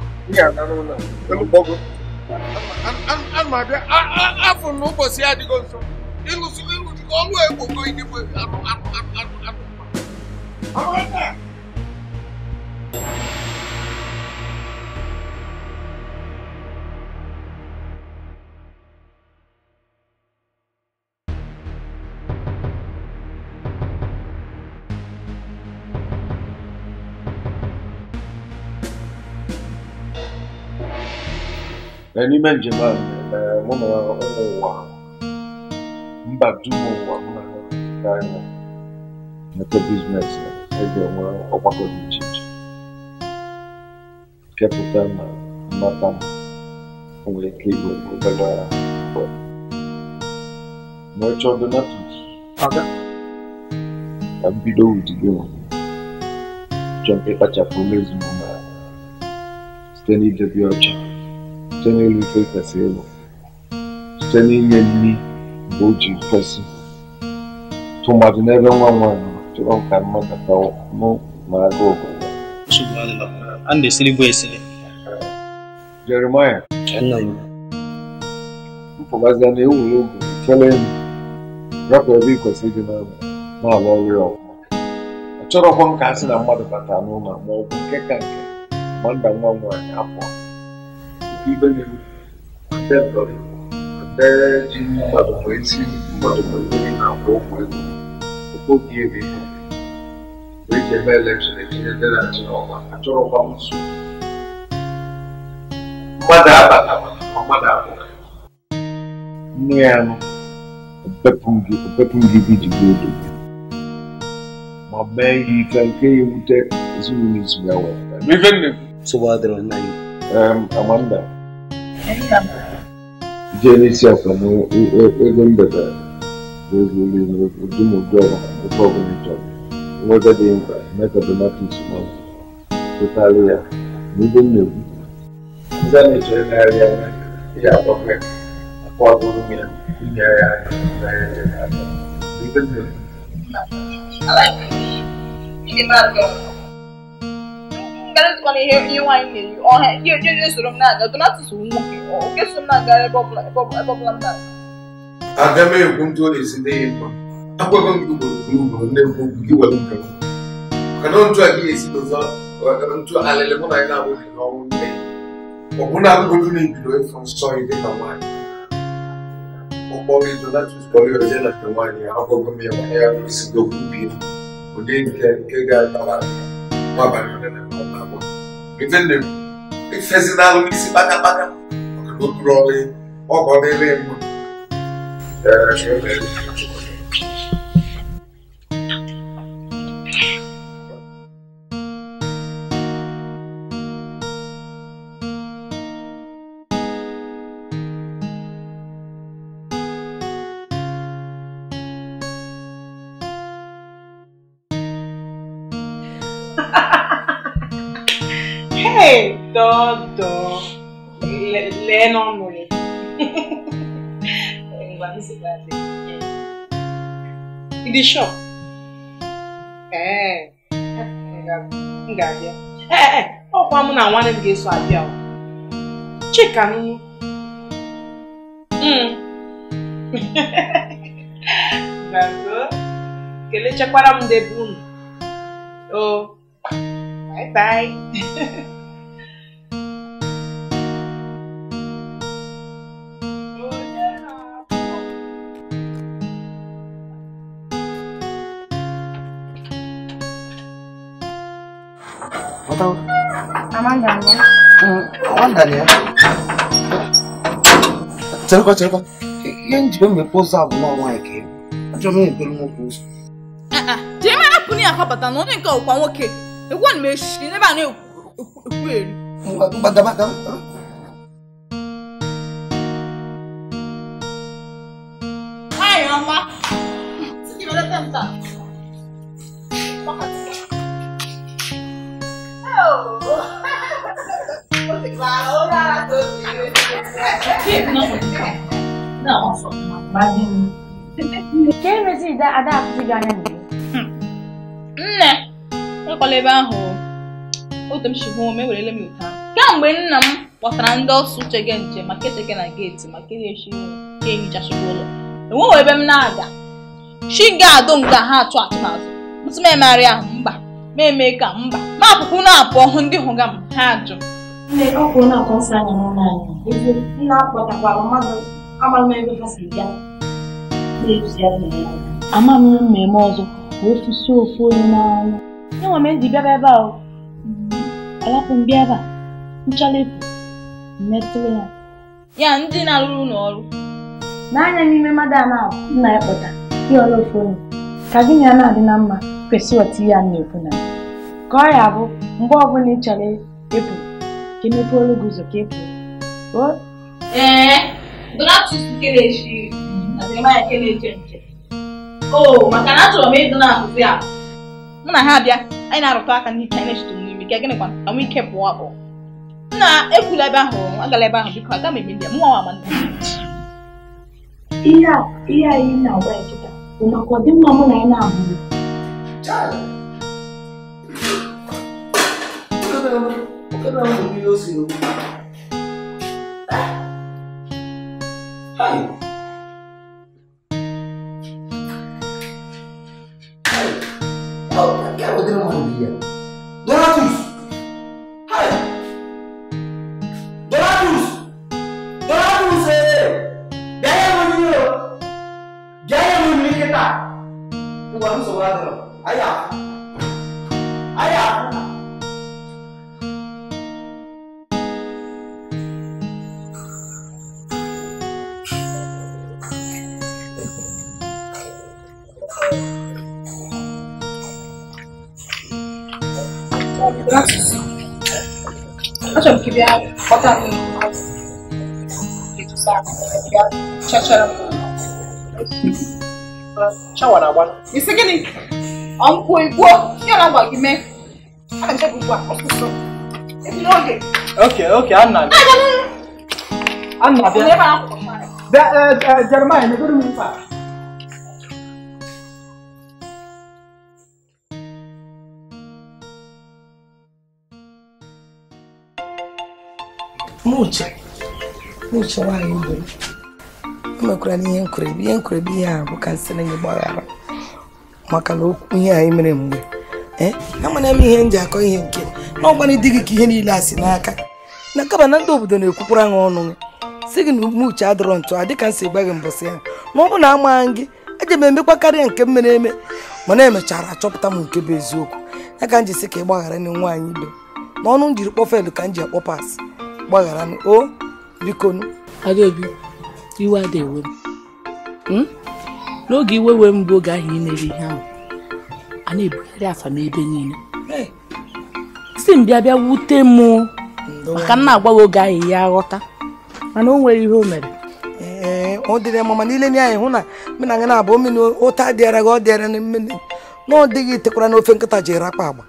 ihe agarụla elukpọgo ana m abịa afọ na ụbọchị adịgo nso ịlụsi ịlụjikọ ọlụ egbogo idigbo anụ anụ anụ anụ anụ n'ime njem a eh, mụ na ụwa mba dum ụwa mụ na ha anya mete biznes eji enwe ọgbakọ dị iche iche kepụta na mmata nwere ike igwe obere ma ọ chọọ aga ka mbido ụdị gị nwere chọọ mụ na site n'idebe ọcha Standing in faith as able. Standing in me, Boji person. To my never one one, to all can mother power, no, my go. And the silly boy silly. Jeremiah. Mpọbazi na ewu n'ogu ikele enyi rapụ ebe ịkwesị ịdị n'ala na-alụ ọrụ ya ọgụ. Achọrọkwa nka asị na mmadụ bata n'ụlọ ma nke ka nke ma nda nwa nwaanyị apụọ. ibenewu debọrị dee ji mmadụ wee si mmadụ mmiri na-akwụ ụgwọ ego okpogi ebe wee ji eme elekshọn etinye ndị na-achị n'ọgba achọrọkwa nzu mmadụ abata mmadụ abụọ nne ya nọ opepụ gị bidigbo odo ma mee ihe ike nke ya ewute ezinụlọ izugbe wee sogbadịrị nna um, Amanda. Jee n'isi akwa na ego mbata ego niile ụdị m ụdị ọrụ ebe ọbụla nweta dị mkpa mee ka donatis ya na ibe ndị a na-echere ya ihe agbafe akwa ọdụrụ ya inyere na karịzikwa na ihe nwaanyị na ọha ihe soro m na-aga donatus m na ebe m aga m ndị ụlọ ezi n'ihi mma agwaghị m gị ugboro nne m okwu gị were nke mana ntụ a gị esi n'ụzọ ntụ alịlị mụ na anyị na-abụghị n'ọnwụ nne ọ bụ na na ebido nsọ dị ka nwaanyị ụgbọ gị donatus ya na nke nwaanyị agwaghị m ya nke efenne efezinalụ n'isi kpaka ọ ọkụrụ ọdị ọgọ dịrị mma bẹ́ẹ̀ náà nù ni ìgbà mi hmm. sì <laughs> gbà dé ibi ṣọ ngabịa ee ọkwa mụ na nwanne m ga-eso abịa chika nunu kelechakwara m debe unu oh, bye bye <laughs> Mandania. Mandania. Cherokwa, Cherokwa. Ihe njibe mmepe ụzọ abụ nwa nwaanyị ka ịbụ. Achọrọ m ebere nwoke ụzọ. Jee mara pụ na akọbata na onye nke ọkwa nwoke. Egwu a na-eshi n'ebe a na-ekwu eri. Mgbadabaka. Nwaanyị ọma. Ahora No, ka emezi ide ada apụzi gị anya mgbe nne ekwala ebe ahụ otu m shibu m ewerele m ụta kemgbe nna m kpọtara ndị ọsụ gị nche maka echeke na geeti maka erechi ehicha ehichasịrị ụlọ enweghị ebe m na-aga chi ga-adụ nga ha atụ atụmatụ ntụmemegharị ahụ mba ma eme ka mba ma apụpụ na-apụ ọhụ ndị hụga m ha ajụ Nne, ọ kwụrụ na akwa nsọ anyị n'ụlọ anyị nna akpọtakwara mmadụ amaghị m ebe ha si bịa amaghị m mmemme ọzọ ka ofusi ofu onye n'ọnụ enwe m eji bịaba ebe a mm-hmm. alapụ m bịa ebe a nchalepụ mmetụrụ ya ya ndị na-arụrụ n'ọrụ. n'anya n'ime mmadụ a na-abụ nna ya kpọta ịghọrọ ofu onye ka gị na ya na-adị na mma kwesị ọtụ ya na-ekwu na ka ọ ya bụ mgbe ọbụla ị chọrọ ịpụ ka emepe olu gị ụzọ ka e kwuo ee donatus kelechi o maka na achọrọ m ịdị na-akụzi mụ na ha abịa anyị na-arụta aka n'ike anyị na-echete n'ime ka gịnị na anwụ ike pụọ e nna ekwula ebe ahụ agala ebe ahụ biko aga m a na-agwa ya bụ maka ọdịmma na na Look at how the videos you Hi. Oh, que eu tenho uma dia. Donatus! Hi! Donatus! Donatus! Gaya Munio! Gaya Munio que tá! O ano sobrado. Aí, ó. Facciamo che vi ha portato in che ci sta, che c'è c'era Ciao Arawan. Mi sa che ne ho un po' il buo. Io la guardo me. Ah, c'è un po' questo. E mi oggi. Ok, ok, Anna. Anna, bene. Germania, mi dormi in faccia. n'uche nwaanyị gburu emekwara n'ihe nkurebi ihe nkurebi ihe a nsị na gbaghara maka na okwu ihe anyị mere mgbe eh, amana m ihe m ji akọ ihe nke na ọgbara gị ka ihe niile a si n'aka na kaba na ndị obodo na-ekwukwara gị ọnụ gị si gị na umuche adọrọ ntụ a dịka nsị si gba gị mbọsị ya ma ọ bụ na amaghị gị eji m emekwa karịa nke m mere eme mana emechara achọpụta m nke bụ eziokwu ya ka m ji si ka ị gbaghara nwaanyị ibe n'ọnụ m jiri kpọfel ka m ji akpọpas gbaghara o bikonu nu Adaobi iwe ada ewe m hmm? n'oge iwe wee m bụ oge ahụ imere ihe ahụ a na-ebugharị afa m ebe niile si m bịa bịa wute m maka m na-agbawa oge ahụ ya aghọta mana o nwere ihe o mere ọ dịrị mama niile n' anyị hụ na mena gị na-abụ mmiri ụta dịara gị ọ dịara na mmiri na ọ dịghị tekwara n'ofe nkịta jiri akpa agba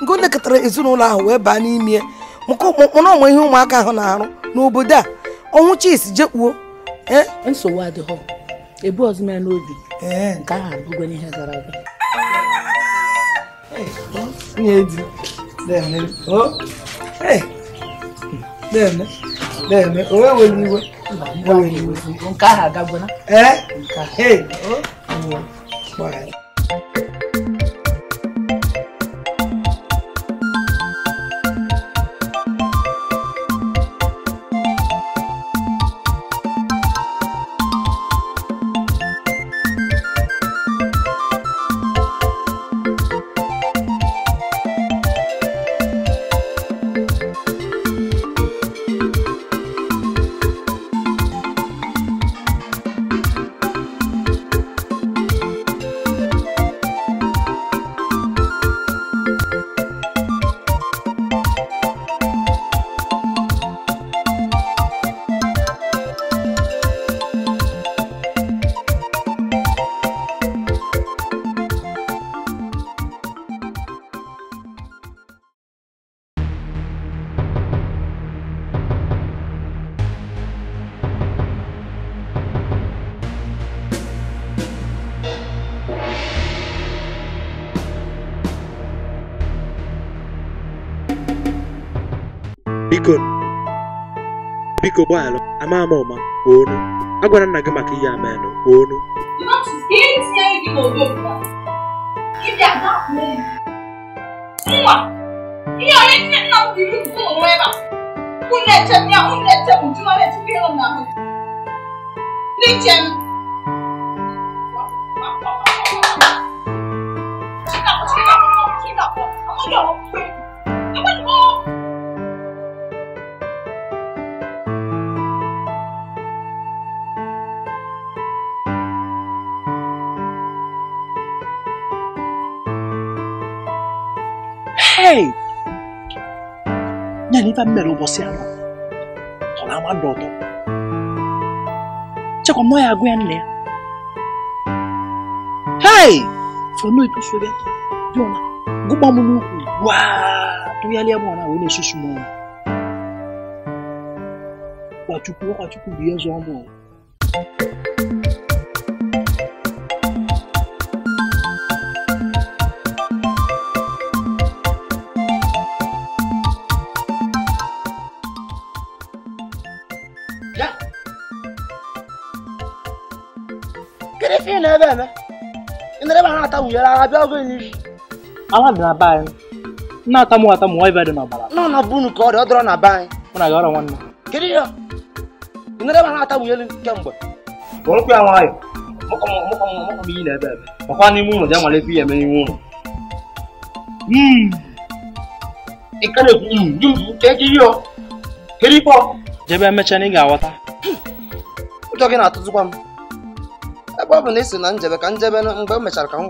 nke ọ nekọtara ezinụlọ ahụ wee baa n'ime ya. mụ na onwe ihe ụmụaka ahụ na-arụ n'obodo a ọnwụ chis jekpuo e? nsogbu adịghọ ebu ọzọ ya n'obi e. nke ahụ abụgo n'ihe gara aga nwunye di deme deme o ewere iwe nke ahụ agagona ee nke ahụ biko gbaghara ama ama ụma onu agwara nna gị maka ihe amenụ onu ihe onye nfa mmere ụbọchị anọ ọ na-ama ndụ ụtọ chekwa m ya agụ ya nne ya hei fọnụ etosobịa dịọna gụgba m n'ukwu gwa tụgharịa m ọna wee na-esusu m ọnụ kwachukwu kwachukwu bụ ihe bẹ́ẹ̀ mẹ́ inda dai ba na ta wuyara na biya zai yi ala na ba yi na ta mu ta mu wai ba da na bala na na bunu ko da odro na ba yi muna ga ran wannan kiri yo inda dai ba na ta wuyara kemgbe ko ku ya wayo moko moko moko bi na ba ba ko ni mu no da male fi ya me ni mu mm ikale ku mm ju ke ji yo kiri po jebe mecha ni ga wata Ụjọ gị na-atụzikwa m ebe ọ bụ na ị sị na njebe ka njebe mgbe mechara ka m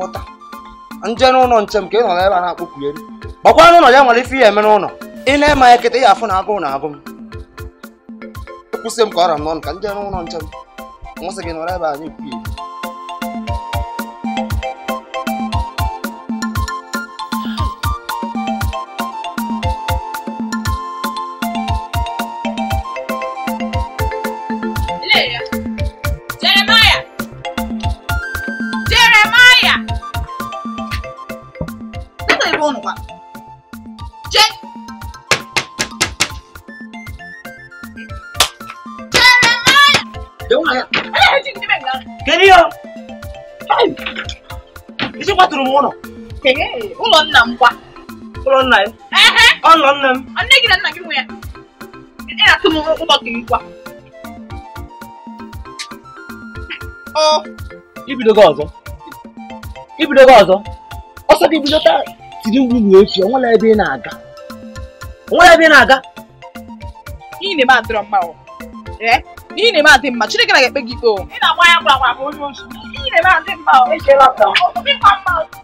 nje n'ụlọ nche m ka ị nọ ebe a na-akpọkwu elu gbakwa n'ụlọ ya nwere ife ihe eme n'ụlọ ị na-eme ya kịta ya afụ na agụụ na agụ m kwụsị m ka ọ ra m n'ọnụ ka nje n'ụlọ nche m nwụsị gị nọrọ ebe a na-ekwu ilu Eh, ụlọ nna m gwa ụlọ nna ya ọnọ nna m nne gị na nna gị nwe ya ị na-atụ m ụlọ gị gwa ibidogo ọzọ ibidogo ọzọ ọsọ gị bido taa tiri mgbu bụ echi onwere ebe ị na-aga onwere ebe ị na-aga n'ihi na ebe adịrọ mma ọ n'ihi na ebe adị mma Chineke na-ekpe gị ikpe ị na-agba ya gwara bụ onye ozi n'ihi na ebe adị mma ọ echeela mma ọ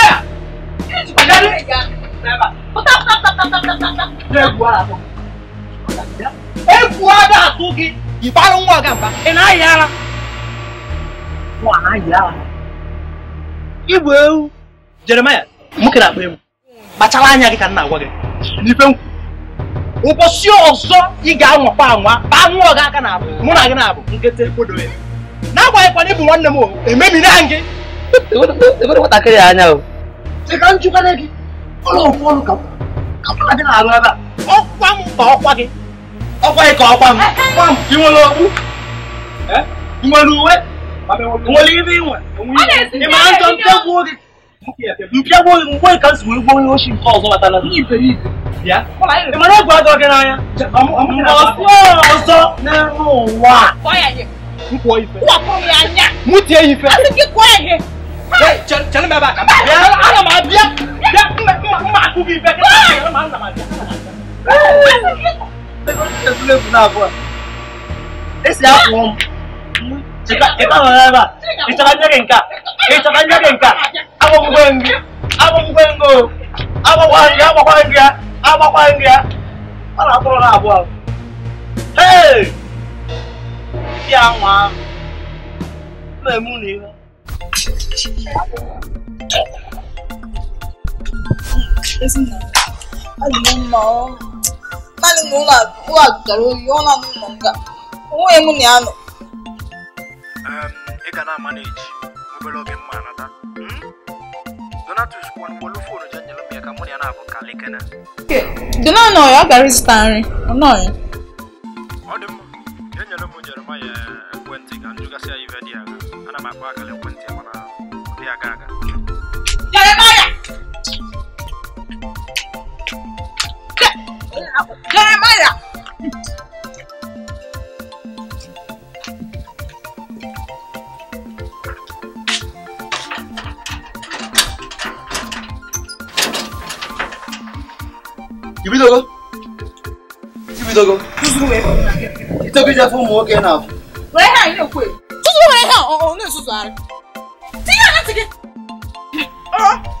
berapa petak petak petak petak petak petak udah gua langsung eh gua ada atuki ibalong mo agamba enayala mo anayala ibu ewu jeremaya mukere akpa ewu kpachala anya gị ka nna agwa gị n'ife nkwu ụbọchị ọzọ ị ga-anwakwa anwa ka anwụ ọga aka na-abụ mụ na gị na-abụ nkịtị kwodo ya n'agbanyeghịkwa na ịbụ nwanne m o ememina gị nwatakịrị anya o cheka nchụkana gị ọlọ́run fún ọlùkà kápẹ́ láti náà àgbàlagbà ọ̀pá mu pa ọ̀pá kí ọ̀pá ikọ̀ ọ̀pá mu ọ̀pá mu kí wọ́n kú ẹ́ ìwọ̀n lu wẹ́ ìwọ̀n lè rí ìwọ̀n ìmọ̀ à ń jọ mpẹ́gbó rí mpẹ́gbó rí mpọ́ ìka sì wọ́n gbóyún oṣù nǹkan ọ̀sọ́ bàtà náà yìí fèyí ìyá ìmọ̀ náà gbọ́ ọjọ́ kẹ́nà ayá ọ̀sọ́ nínú wa nkọ ife. wà á kọ́ mi ànyà. mú tiẹ̀ ife. a ti kí kọ́ ẹ̀hìn. ẹ jẹ jẹ ní bẹ́ẹ̀ bá kà mí. ala ma bíyà máa kú bí bẹ́ẹ̀ kí ló máa ń nà máa jà. Esi afọ m. Ika ọrịa ịchọrọ nye gị nka ịchọrọ nye gị nka agbọgbọ nri agbọgbọ nri o agbọgbọ nri agbọgbọ nri ya agbọgbọ nri ya ọ na-akpọrọ na abụọ. Hey! Ndị anwa ahụ na-eme unu ihe. ezinụlọ adịghị naanị na ụlọ ụlọ dara oyi ọ na-anụ ụlọ nga onweghị m na ya nọ ị ga na-ama na-eji m na kalikene dona ya ya mma enyere m jeremaya ekwentị dị ana m akpọ akara mana 그래 말이야. 입에다가 입에다가 수수해. 이따가 이제 손 먹게 나. 왜 해? 이거 왜? 뭐 수수해. 어, 어, 내 수수 알아. 지금 안 지금. 어.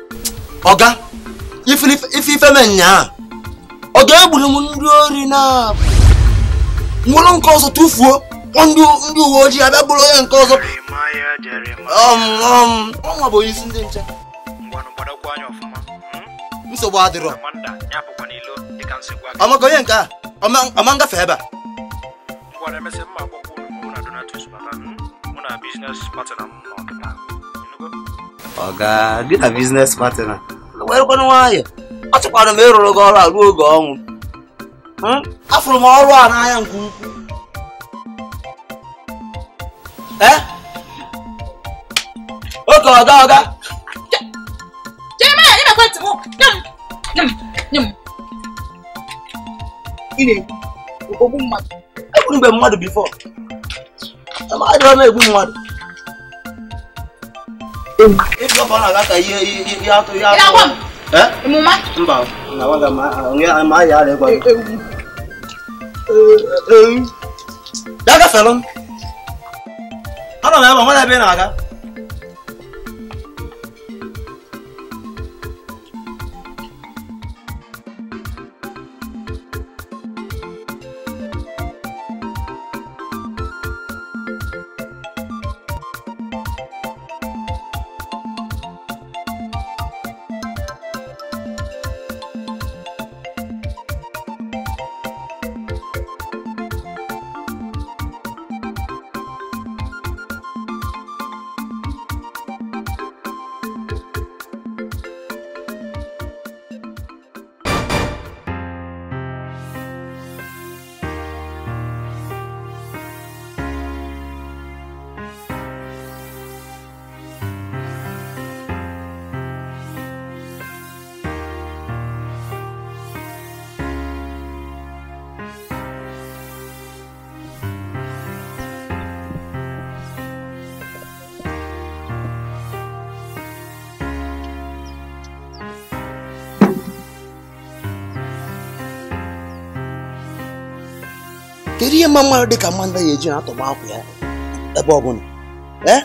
ọga ife ife me nyaa ọ ga-egburu m ndị ori na nwụrụ nke ọzọ tụfuo ndị uwe ojii abịa gburu onye nke ọzọ um, um, ọnwa bụ onyeisi ndị nche nsogbu adịrọ ọmaka onye nke a ọma ngafe ebe a business partner m ọga gị na biznes partner werekwana nwayọ achọkwara m ịrụrụ gị ọrụ a ruo oge ọnwụ hmm? afụrụ m ọrụ a n'anya nke ukwuu eh? oke ọga ọga egbu mmadụ bifọ adịghị m egbu mmadụ Ibyo bana kaka yato yato. Ila kwa. Eh? Muma. Mba. Na wanga ma ngia ma ya le kwa. Daga salon. Ana na ba mala be na ga. kedu ihe mma mmadụ dịka mmadụ na-eji na-atọgba akwụ ya ebe ọbụla bụla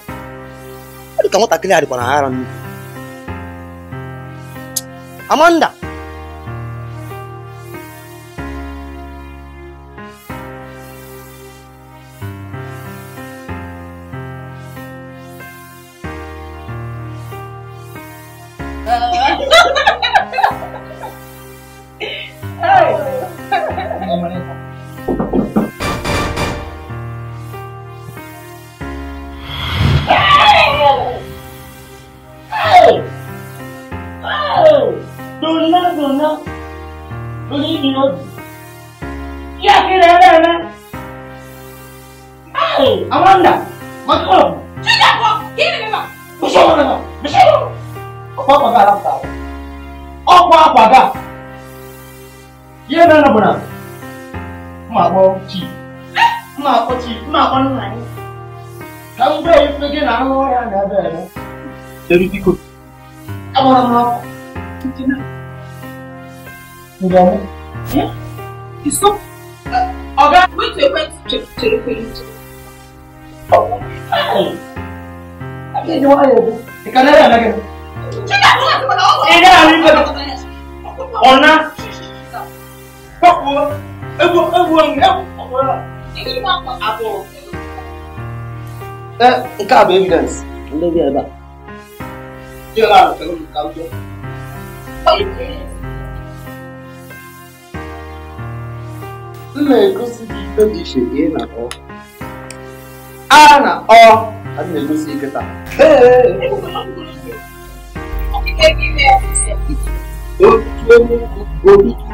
ọ dịka nwatakịrị a dịkwa na ara nnu Amanda o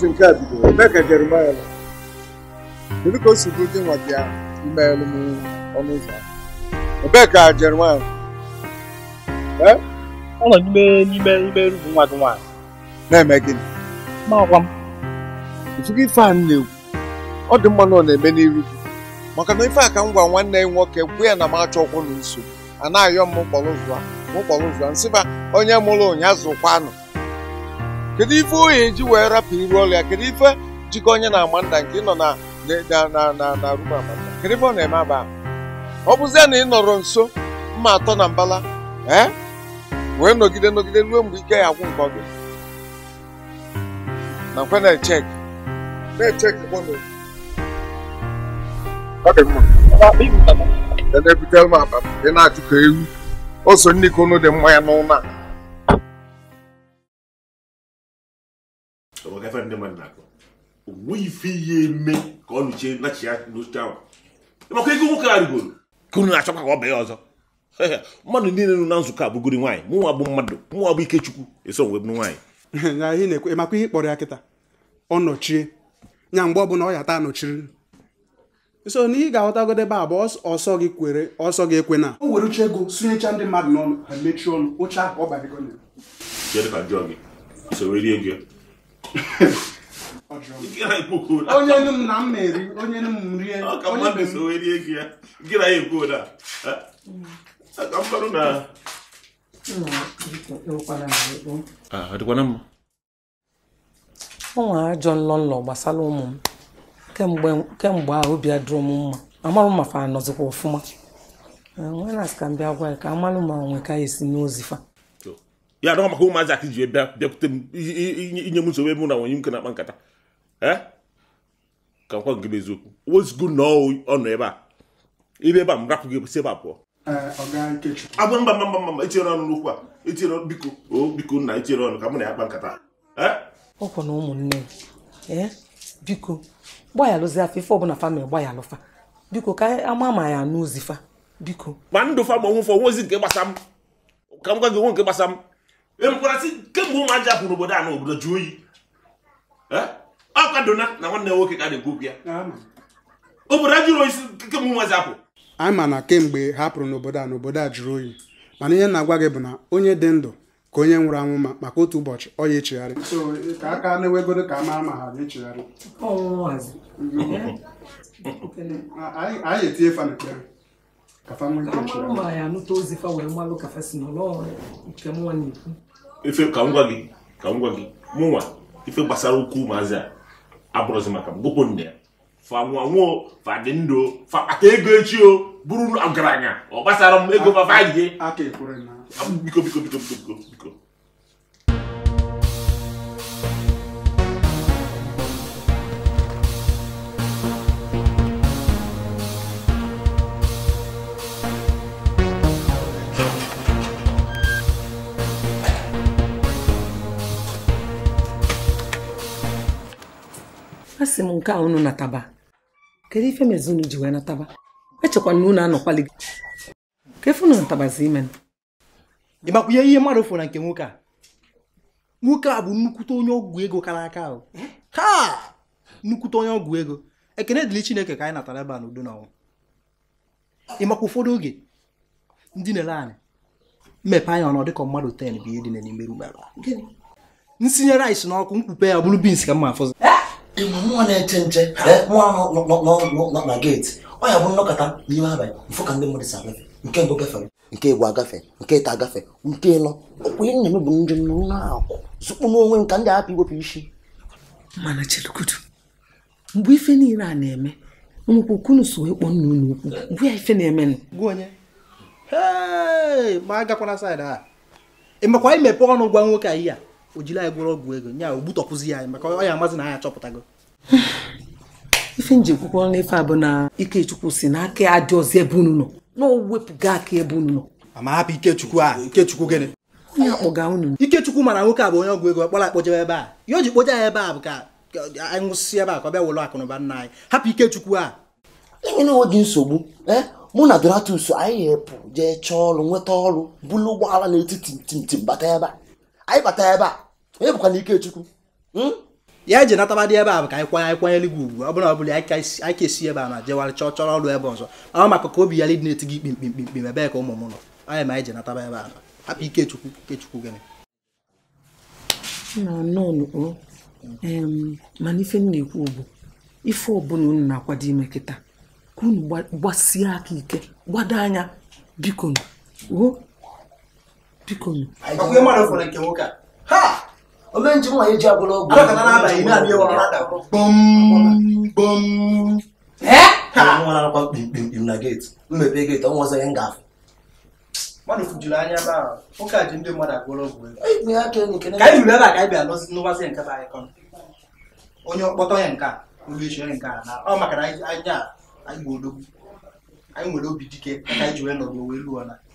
ozi nke a bidoro eme ka Jeremaya nọ kedu ka o si bụ gị nwa gị ahụ imeghelụ m ọnụ ụzọ ebee ka Jeremaya ọ nọ n'ime n'ime n'ime rumu nwa gị nwaanyị na-eme gịnị ma ọkwa m otu gị ife a na-ekwu ọ dị mma na ọ na-eme n'iru gị maka na ife a ka m gwa nwanne ya nwoke gwu ya na m achọ ọkwụ na nso a na-ayọ m mkpọrọ ụzọ a mkpọrọ ụzọ a nsị ba onye mụrụ ụnyaahụ kwanụ? kedu ife onye ji wee rapụ iru ọrụ ya kedu ife jikọ onye na Amanda nke ị nọ na na rum Amanda kedu ife ọ na-eme aba ọ bụzie na ị nọrọ nso mma atọ na mbala ee eh? wee nọgide nọgide ruo mgbe ike ya agwụ nkọ gị na nkwe na-echek na-echek na-ebute dị mmanya n'ụlọ a ọgafe ndị mmadụ na-akọ o ife ihe eme ka ọ nụchie nachi ya n'oche ahụ maka ego nwoke a rigoro ka na-achọkwa ka ọ ọzọ mmadụ niile nọ na nzukọ abụgori nwaanyị mụnwa bụ mmadụ mụnwa bụ ikechukwu eso bụ nwaanyị ihe kpọrọ ya kịta ọ nọchie ya mgbe ọbụla ọ ya nọchiri so na ị ga-aghọtagodo ebe a ọsọ gị kwere ọsọ gị ekwe na o uche ego ndị mmadụ n'ọnụ ha mechie ọnụ ụcha ọ onye nụ m na m na-eri onye nụ m rie ọka mmadụ so wee rie gị ya gị na ya ah, ekwu na aka mkparụ na ọdịkwana mma o nwere ajọ nlọ nlọ gbasara ụmụ m kemgbe ahụ obi adịrọ m mma amarụ ma fa anọzikwa ọfụma ah, nwere na ka m bịa gwa ya ka amalụ ma nwe ka esi n'ozifa ya adọghọ maka ụmụazị akị ji bịa bịakwute m inye m nsogbu ebe na nwunye m na-akpa nkata ka nkwa gị eziokwu wezgo na ebe a ibe ebe a m rapụ gị si ebe a mba mba mba mba etinyere biko o biko nna etinyere ọnụ ka na ya kpa nkata ọkwa eh? na ụmụnne eh? biko ife ọbụla famịlị biko ka ama ma ya n'ozifa biko ma mkparasị kemgbe ụmụaja apụrụ obodo a na obodo jụọ oyi ọ kwadona na nwanne nwoke ka na-ekwu okwu ya obodo ajụrụ jụrụ oyi kemgbe ụmụaja apụ anyị ma na kemgbe hapụrụ n'obodo a n'obodo a jụrụ oyi mana ihe na-agwa gị bụ na onye dị ndụ ka onye nwụrụ anwụ ma maka otu ụbọchị ọ ya echegharị ka aka na-ewegoro ka <laughs> a mara ma ha na-echegharị anyị etinye fa n'ekpere kafa nwee ike echegharị ife ka m gwa gị ka m gwa ife gbasara ukwu maazị a abụrụzi maka m gụpụ nne ya fa nwa nwo fa dị ndụ fa ego echi o bụrụ ọgaranya ọ gbasara m ego fa fa biko biko biko biko biko asị m nke a unu nataba kedu ife mezi unu ji wee nataba echekwa na unu anọkwali gị ka natabazi ime ị makwunye ihe mmadụ fụrụ na nke nwoke a nwoke a bụ nnukwute onye ọgwụ ego kara aka ahụ ka eh? nnukwute onye ọgwụ ego ekene dịrị chineke ka anyị natara ebe a n'udo na ọnwụ ị makwa ụfọdụ oge ndị na-ele anyị mmepe anya ọnọ dịka mmadụ ten bụ ihe dị bins ka mma eh? nwa na-eche nche nwa ahụ eh? na geeti ọ ya bụ nnọkọta n'ime abalị mfụ ka ndị mmadụ si agafe nke mbụ gafere nke egbu agafe nke ịta agafe nke ịlọ ọkwa ihe m bụ ndị na-akwụ zụkpụ n'onwe m ka ndị hapụ iwepụ isi mana chelukudu mgbe ife niile a na-eme nwekwa okunu so nna unu ya ife na onye ma agakwana a imepe ọnụ gwa nwoke anyị a o jiri anyị gwụrụ ọgwụ ego nya o gbutọpụzi anyị maka ọya ya amazị na anyị achọpụtago ife nji kwukwọ n'efe a bụ na ikechukwu si na aka adị ọzọ ebe unu nọ na o aka ebe unu nọ ama hapụ ikechukwu a ikechukwu gịnị onye akpọga unu ikechukwu nwoke a bụ onye ọgwụ ego kpọrọ akpọjebe ebe a ya o ji ebe a bụ ka anyị ebe a ka ọ akụnụba nna anyị hapụ ikechukwu a nsogbu e, mụ na donatus anyị jee chọọ ọrụ nweta ọrụ bụlụ ụgbọala n'etiti bata ebe a anyị bata ebe a onye bụkwa na Ikechukwu hmm? ya ji natabadị ebe a bụ ka anyị kwanye kwanyere gị ugwu ọ bụla ọ bụla anyị ka esi ebe a na jewara chọọ chọrọ ọrụ ebe ọzọ ọ maka ka obi ya dị na-eti gị ikpe mkpi mkpi ebe ka ụmụ m nọ anyị ma anyị ji nataba ebe a na hapụ Ikechukwu Ikechukwu gịnị mana ife m na-ekwu ugbu ife ọbụla unu na-akwado ime kịta ka unu gbasie aka ike gbado anya biko o biko onye nji ji agwụla ọgwụ na mmepe geeti ọnwa ọzọ ya m ga-afụ nke bụ anyị onye ọkpọtọ ya nke a ụlọ ichi nke a na ọ maka na anya anyị anyị nwere obi dike ka anyị ji wee wee luo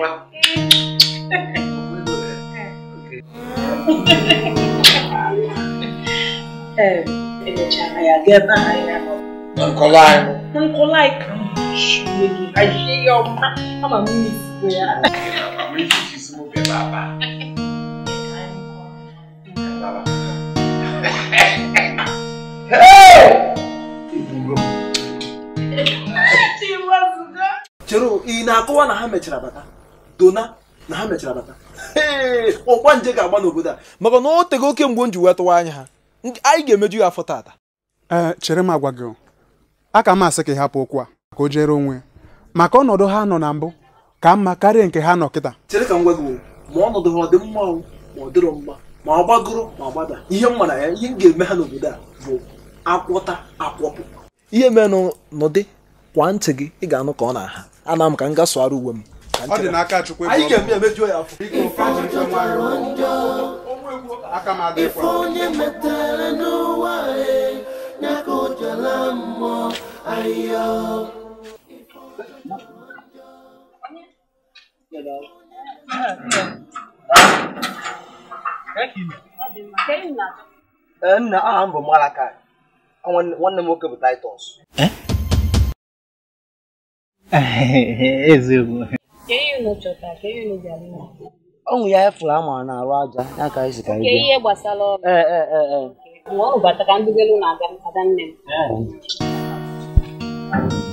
wa. Nkɔlaayi. Nkɔlaayi kan ṣe ayé ọma ama mi ní ìsìnkú ya. Àwọn èyí ti sọ mo bẹ bàbá. Chero, ị na-akọwa na ha mechara bata? dona na ha mechara bata ọgba nje ga-agba n'obodo a maka na o tego oke mgbe m ji wee tụwa anya ha anyị ga-emeju ya afọ taata ee chere m agwa gị a ka m asị ka ị hapụ okwu a ka o jere onwe maka ọnọdụ ha nọ na mbụ ka mma karịa nke ha nọ kịta chere ka m gwa gị ma ọnọdụ ha ọ dị mma ma ọ dịrọ mma ma ọ gbagoro ma ọ gbada ihe m mara ya ihe m ga-eme ha n'obodo a bụ akwọta akwọpụ ihe menụ nụdị kwa ntị gị ị ga-anụ ka ọ na-aha ana m ka m ga uwe m ọ dị n'aka chukwu anyị ga-eme emeju ya afọ aka m adị kwa onye e, nna aha m bụ nwanne m nwoke bụ taịtọs eh? <laughs> eziokwu ọnwụ ya efụrụ a mara arụ aja ya ka anyị si ihe gbasara ọrụ ee ee ee ee mgbe ọ bata ka mbigolu na-aga nne m eh.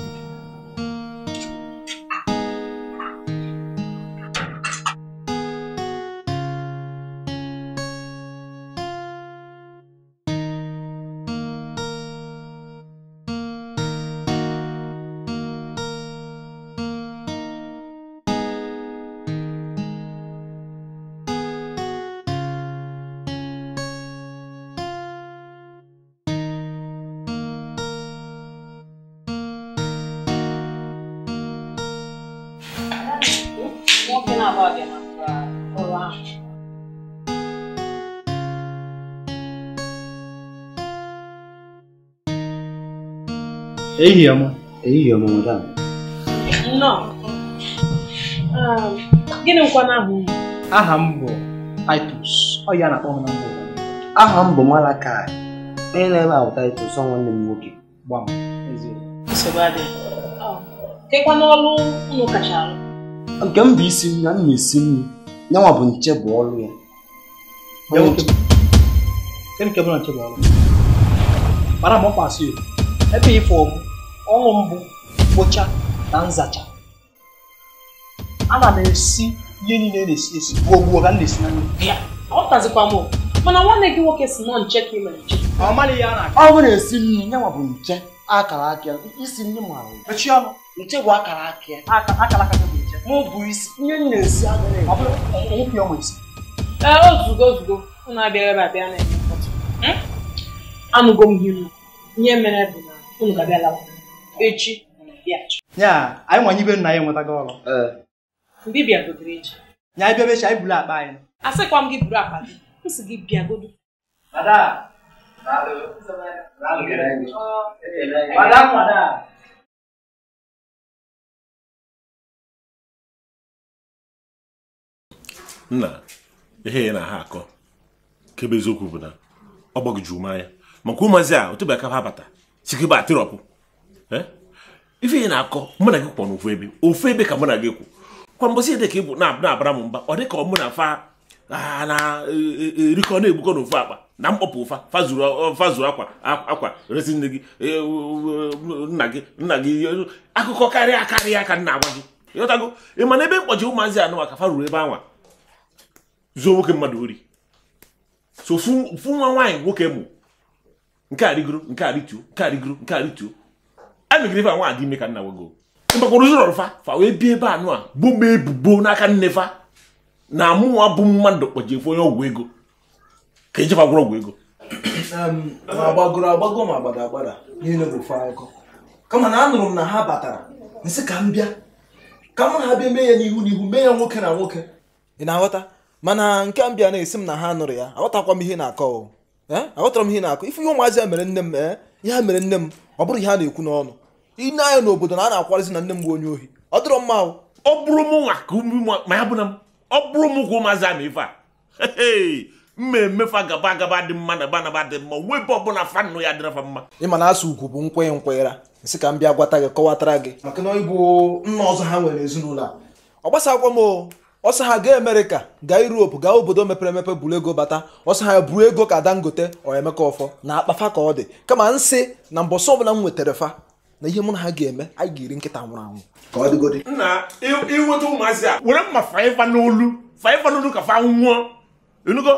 Ei, Yama. Ei, Yama, madam. Não. Um, gịnị Não. n'ahụ não Aha m bụ Titus. Ọ ya na-akpọ m na mbụ. Aha m bụ Malakai. Onye na-eme ahụ Titus ọ nwanne m nwoke. Gbam. Nsogbu adịghị. Kekwa Não unu Não alụ. Não m bụ isi nri na Não não ah, esi nri. Não bụ nche bụ ọlụ ya. Kedu nke bụ na nche bụ ọlụ? Mara m ọrụ mbụ mkpocha na nzacha ana m esi ihe niile na-esi esi gbuo gbuo ka m na-esi na nri ọ tazikwa m mana nwanne gị nwoke si nọ nche ka ị mere nche ọ maghị ya na ọ bụrụ esi nri ya ma bụ nche akara akịa, isi nri mara mechie ọnụ nche bụ akara aka akara aka bụ nche ma bụ isi ihe m na-esi agaghị ọ bụrụ ọnwụpịa e, e, isi ee ozugo ozugo unu abịaghị ebe abịa na-eme mkpọtụ anụgo m ihe ihe mere bụ na unu ga-abịa lawa echi ya anyị nwanyị ibe nna ya enwetago ọrụ mbibia gotere echi ya anyị bịabechi anyị buru akpa anyị asịkwa m gị buru akpa gị m si gị bịa godo nna ihe na ha akọ kebe eziokwu bụ na ọ gbagojuru m anya maka ụmụazị a otu bụ abata ha bata sikebe atịrọpụ Eh? ife ị na-akọ mụ na gị kwọ n'ofu ebe ofu ebe ka mụ na gị kwụ kwa mbọsị ede ka ị bụ na-abara m mba ọ dị ka ọ mụ na fa na-erikọ e, e, na-egbukọ n'ofu akpa na mkpọpụ ụfa fazuru akwa akwa resi nne gị e, nna gị nna gị akụkọ karịa karịa ka nna agwa gị ịghọtago ị mana ebe mkpọchi ụmụazị anụwa ka fa ruru ebe anwa zuo nwoke mmadụ ori so ofu nwa nwaanyị nwoke mụ nke a rigoro nke a rituo nke a nke a megide ime ka nna wego mgbakwara ụzọ fa wee bie ebe anụ a bụ ebubo n'aka nne na mụnwa bụ mmadụ kpọjefe onye ọgwụ ego ka ejefa gwụrụ ọgwụ ego kama na anụrụ um, m uh, na ha batara nsị ka m bịa ka n'a ha bịa mee ya n'ihu n'ihu mee ya nwoke na nwoke ị na-aghọta mana nke m bịa na-esi na ha nụrụ ya aghọtakwa m ihe na-akọ aghọtara m na-akọ ife ihe ụmụazị ya mere nne m ee ihe ha mere nne m ọ bụrụ ihe a na-ekwu n'ọnụ i ne anya n'obodo na a na-akwarizi na nne m bụ onye ohi ọ dịrọ mma ọ bụrụ m nwa ka ma ya bụ na ọ bụrụ m ka ụmụazị ama ife a mmemme fa gaba agaba dị mma na banaba dị mma onwe ebe ọbụla fanụ ya dịrọ fa mma ịma na asụ ugwu bụ nkwenye nkwenyera nsị ka m bịa gwata gị kọwatara gị maka na ịbụ nna ọzọ ha nwere ezinụlọ a ọ gbasakwa m ọsọ ha gaa amerịka gaa europe gaa obodo mepere emepe buru ego bata ọsọ ha buru ego ka dangote ọ emeka ọfọ na akpafa ka ọ dị kama nsị na mbọsọ ọbụla m nwetara fa na ihe mụ na ha ga-eme anyị ga nkịta nwụrụ anwụ ka ọ nna ịnweta ụmụazị a were mma faiva n'olu faiva n'olu ka fa nwụọ enugo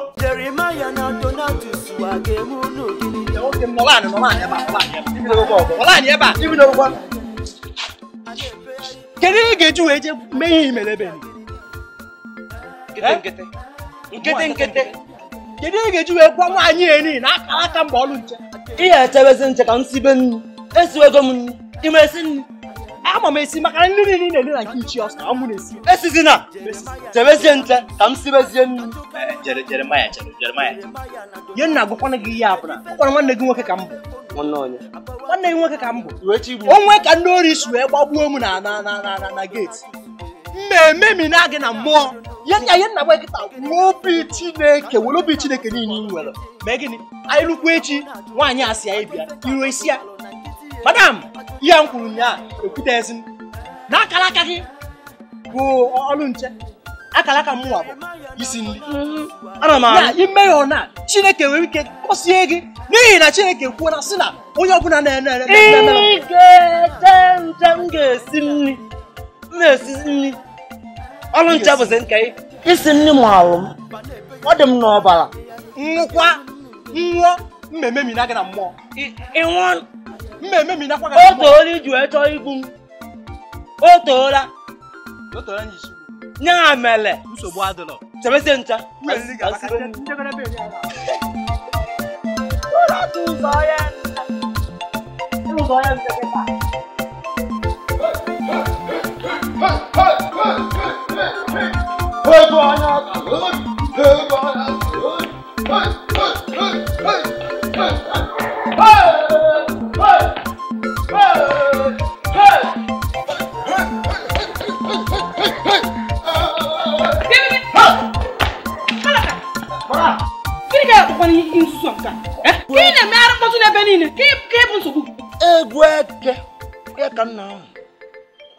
na kedu ihe ga-eji wee je mee ihe imerebe kedu ga-eji wee nwaanyị eni na akara aka mgbe nche ihe echebezi nche ka m be nnu esiwego m nri ị ma esi nri ama m esi maka nri niile na-eri na nke ichi ọsọ ka m na-esi esizina jebezie nte ka m sibezie nri eh, jeremaya nna gwakwana gị ihe abụla ọ nwanne gị nwoke ka m bụ nwanne gị nwoke ka m bụ onwe ka ndị ori si wee gbagbuo m na na na na geeti mmemme mi na-agị na mmụọ ya nna nna obi chineke were obi chineke ị nwere esi ya madam ihe m kwuru ya ekwute m na akara aka gị bụ ọlụ nche akara aka mụnwa bụ isi nri mhm. ana m ahụ imeghe na chineke nwere ike kpọsie gị n'ihi na chineke kwuola sị na onye ọbụla na-ene ere nche m ga-esi nri m esi nri ọrụ nche bụzi nke isi nri m alụ m ọ dị m n'ọbara nwụkwa nwụọ mmemme mina gị na mmụọ ịnwụọ mmemme mi nakwa o toola iji wee chọọ to m o toola o toola nye isi nya mere nsogbu adịrọ chebese ncha ụzọ ya ụzọ ya nkeketa Hey, boy, I'm good. Hey, boy, I'm good. Hey. gbara ihe nzuzo nke a eh? ka ị na-emegharị mkpọtụ n'ebe niile ka ịbụ nsogbu egwu eke ya ka nna ahụ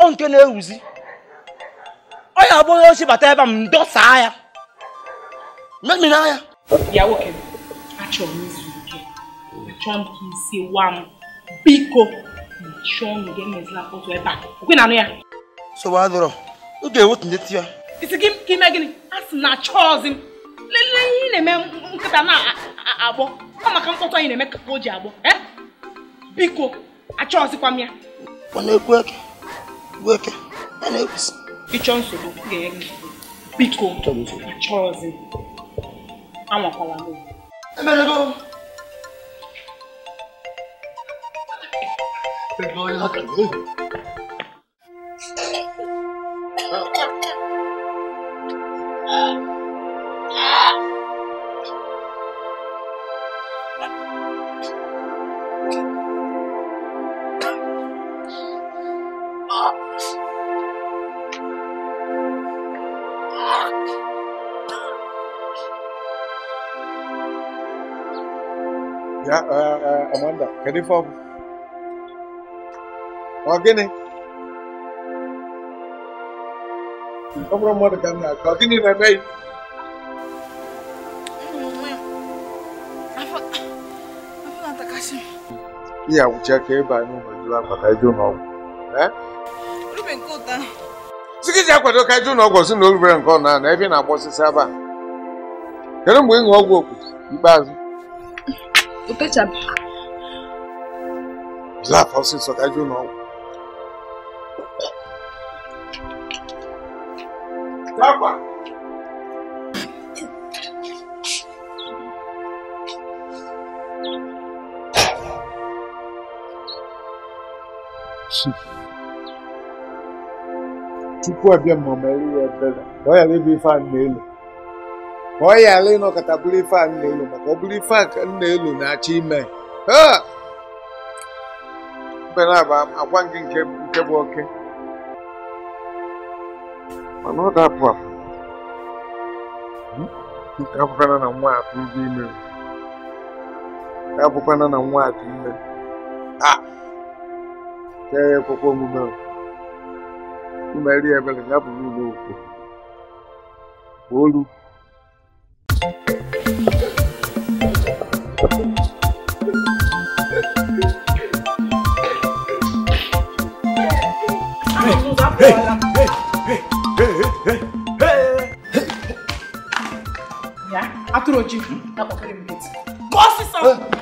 ọ nke na-ewuzi ọ ya agbụghị ochi bata ebe a m dọsaa ya memina ya ya nwoke achọrọ m izu ike achọrọ m ka isi wa m biko chọọ m ga emezila mkpọtụ ebe a okwe na anụ ya sowa adọrọ m ga-ewetunye ya isi gị ime gịnị a sị na achọọzi m lelee ihe ị na-eme nkịta na-agbọ ọ maka mkpọtụ anyị na-eme ka o ji agbọ biko achọghịzikwa m ya ọ na-ekwu eke gwu eke ya na-ekwusi ịchọ nsogbu ga-enye gị biko achọghịzi anwakwala m emerego Thank you. kedu ife ọ bụ ọ gịnị ọ bụrụ mmadụ ka m na gịnị na-eme ka ebe anyị nwejuru akwata ịjụ n'ọgwụ sikiji akwado ka ịjụ n'ọgwụ si na o nke ọ na na ebe na-agba osisi aba kedu mgbe ịṅụ ọgwụ okwu ikpeazụ láàfọ́ sí sọ̀dájú náà. dábàá. chukwu abịa mmamari ya ebere ka ọ ghara ịbụ ife a na-elu ka ọ ghara ịnọkọta bụrụ ife a na-elu nele ọ bụrụ ife a na-elu na mkpere a bụ agwa gị nke bụ oke mana ọ ga-apụ apụ hmm? nke abụkwana na nwa atụ dị ime abụkwana na nwa atụ ime a ah! kee ekwekwe omume imeri ebere ya bụrụ ụlọ okwu olu after Oji. That was very good. Boss is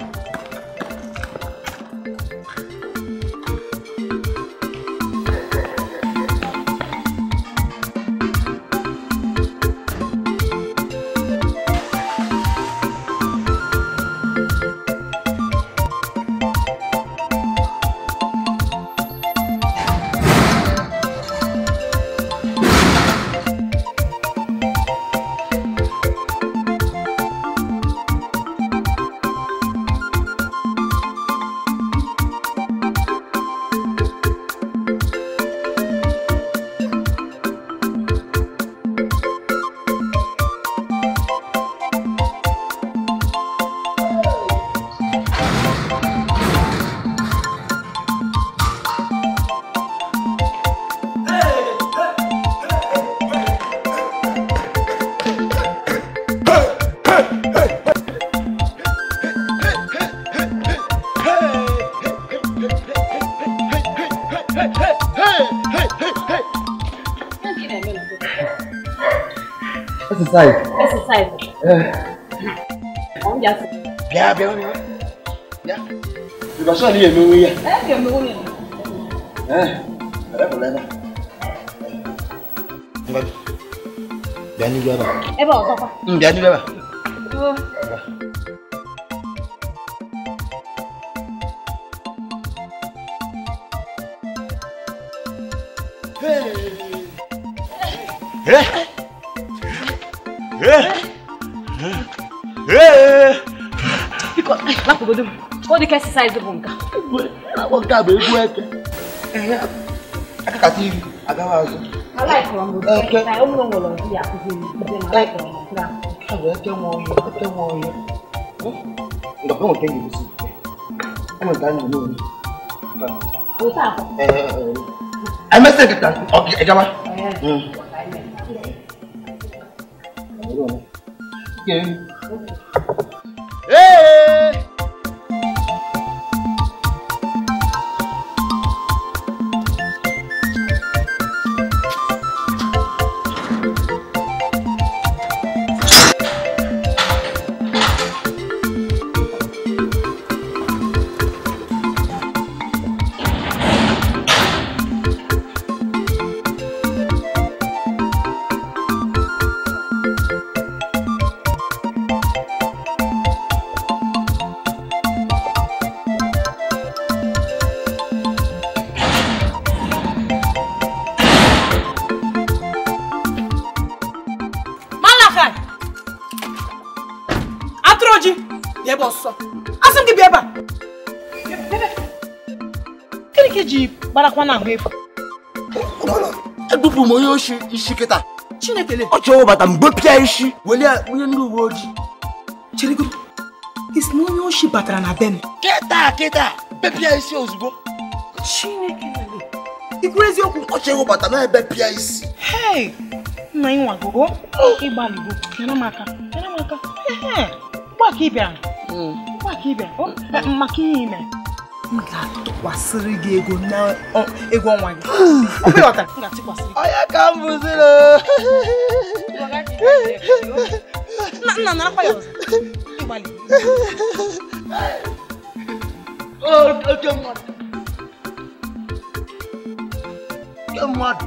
ya bịa nụ ya ịba sọ na eme onwe ya bịa n'iru ebe a ebe ọzọkwa bịa n'iru ebe a Hey! Hey! lakwugodo m ka ọ dị ka exercise bụ nka nke a bụ egwu eke akakata iri agaghị azụ eke bụ eke nwe ọhịa eke nwe ọhịa ndọkọ nweta gị gosi enweta anyị n'olu emesịa nkịta ịgaba Hey! na na ahụ efu ebupụ m onye oshi isi kịta chineke ọ chọrọ ụbata mgbe pịa isi weli onye ndị uwe ojii cherigodo isi na onye oshi batara na be m kịta kịta bepịa isi ozugbo chineke ikwu eziokwu ọ chọrọ ụbata na ebe pịa isi hei nna ị nyere m aka nyere m aka hmm. maka ihe ime m ga-atụkwasịrị gị ego n'ego ọnwa gị <sighs> onye ka m bụziri na ya ọzọ oke mmadụ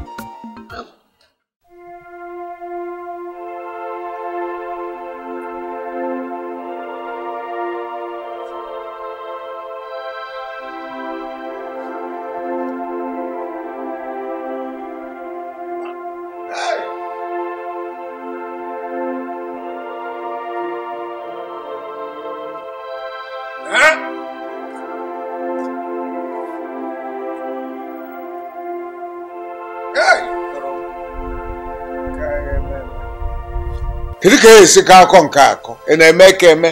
kedu ka e esi ka akọ nke akọ ị e na-eme ka eme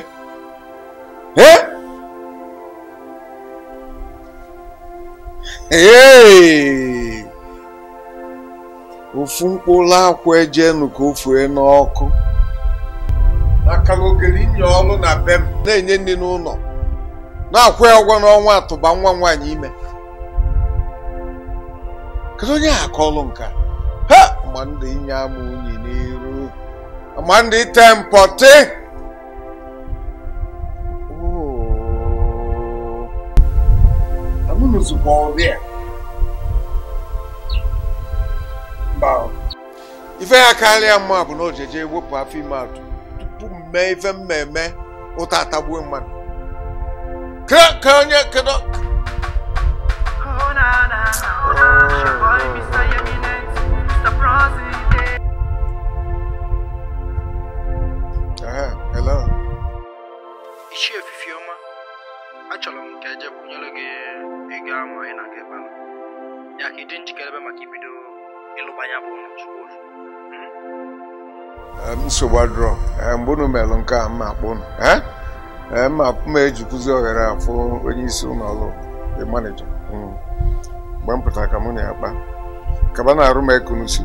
ofu mkpụrụ akwụ ejenu ka ofue n'ọkụ maka na ogere inye ọnụ na bem na-enye nri n'ụlọ na-akwụ ya ụgwọ n'ọnwa atụba nwa nwaanyị ime kedu onye akọlụ nka ha mgbe inye ama unyi n'ihu Amandi tempote. Oh. bụ ọrịa. Mba. Ife ya karịa mma bụ na o jeje wepụ afọ ime atụ tupu mee ife mmemme ụta atagbuo mmadụ. Ka onye kedu. chekwunyere gị ego ahụ anyị na aga ebe ya ka ịdị njikere ebe maka ibido ịlụbanya bụ chukwu nsogbu adụrọ mgbe unu melụ nke a mma akpụ unu akpụ m ejikwuzi ohere afụ onye isi ụlọ ọrụ the manager mgbe m pụtara ka mụ na ya kpa kaba na-arụ m ekunusi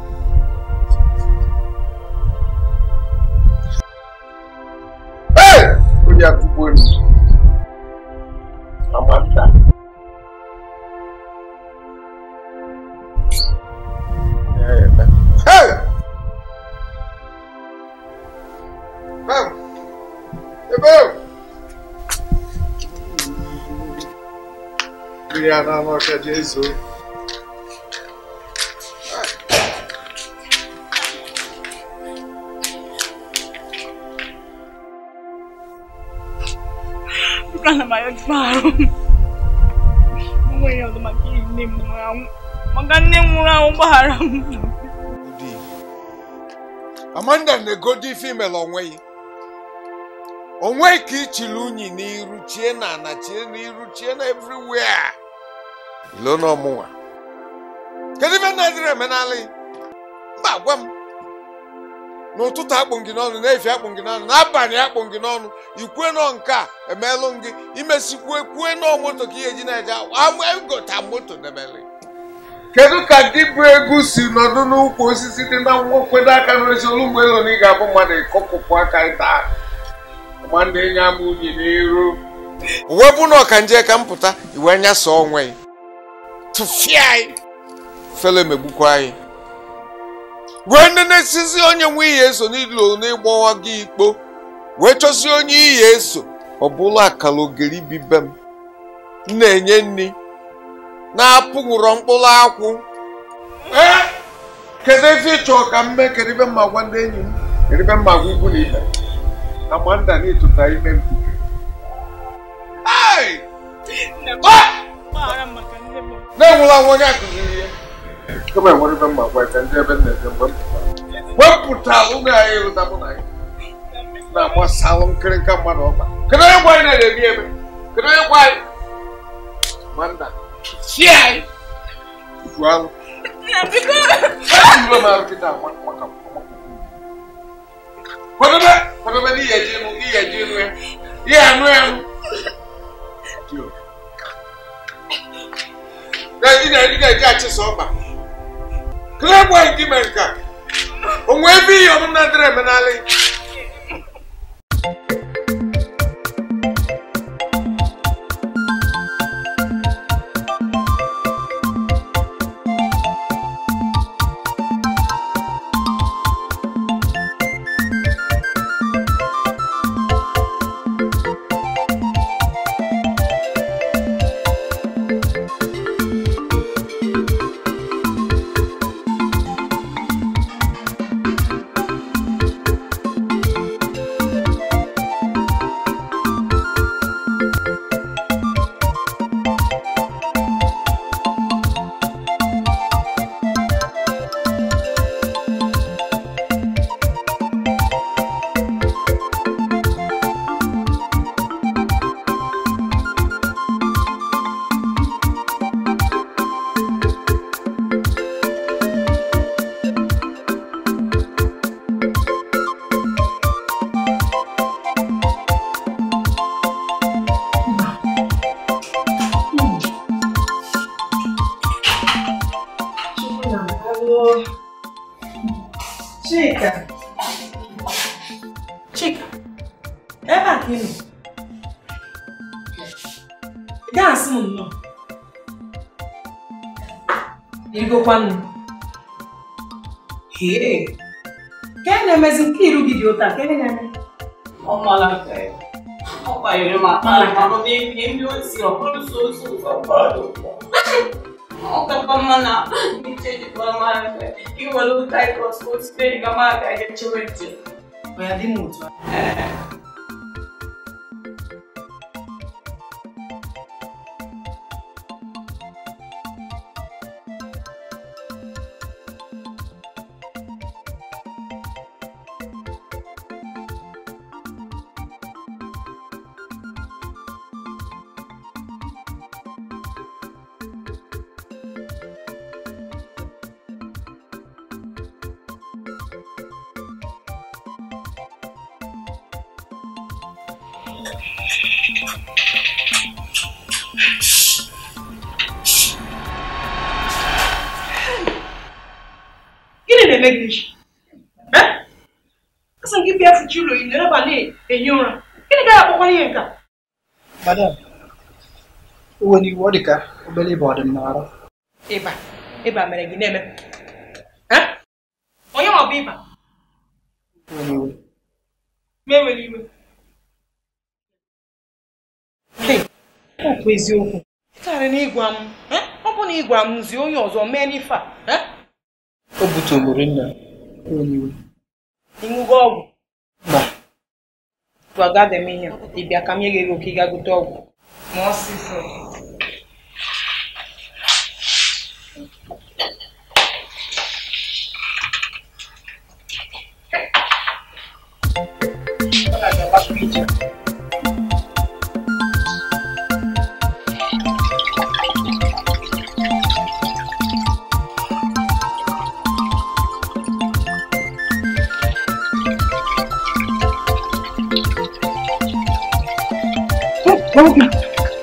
onye akụkọ pegar na nossa de azul. Plano maior de barro. Mga yung dumakinig ni mga magandang mga umbahara mo. Amanda na female onwe ya onwe ka ichiri unyi n'iru chie na chie na everywhere lona ọmụnwa kedu ife na-adịrị emenala mba gwa m n'ụtụtụ akpụ gị n'ọnụ n'efi akpụ gị n'ọnụ n'abalị akpụ gị n'ọnụ ikwue nọ nke a emelụ gị imesikwu kwue nọ moto ka ihe ji na-eje agota e moto debere kedu ka gị bụ egwu si nọdụ n'ụkwụ osisi dị na nwokwedo aka n'ezi olu mgbe na ị ga-abụ mmadụ ịkọpụpụ aka ịta ma na-enye ama unyi n'iru uwe bụ na ọka nje ka m pụta iwe nyasa onwe ya tụfịa anyị fele megbukwa anyị wee nenesizi onye nwe ihe eso n'ilo n'ịgbawa gị ikpo wee chọzie onye ihe eso ọ bụla akara ogiri bibe m na-enye nri na-apụghụrọ mkpụrụ akwụ kedu ezi ịchọ ka m mee kedu mma gwa ndị enyi m kedu mma gwa ikwu na ibe na manda na-etụta ime mkpuke na-enwụla nwa onye akụziri ihe kama enwere ebe mma gwa ka ndị ebe nna-eje mgbe wepụta ụmụ anyị ịlụta mụ na gị na-agbasalụ nkịrịnka mmadụ ọkpa kedu onye gwa anyị na-erebi ebe kedu onye gwa anyị ma nna si anyị igwe anụ ejiro m arụ kịta maka kwadobe kwadobe n'ihe ji ịnụ ihe ji ịnụ ya ihe anụ ya nụ na-eji achị ọkpa kelee gwa gị mere nka o nwee ebe ihe na adịrị emenala Mama, nem me olhou, quando sou sou safado. Nunca pamana, me cheio de pamana, que o aluno tá aí com as coisas, pega a marca, a gente vai dizer. Vai adimuto. É. iwe n'iwu ọ dị ka obere na onye ọ ịba na ịgwa m ọ bụ na ịgwa m zie onye ọzọ mee n'ife a o butụrụ nna ịṅụgo ọgwụ mba ị ka m nye gị ego ka ị gaa gote ọgwụ Bakın.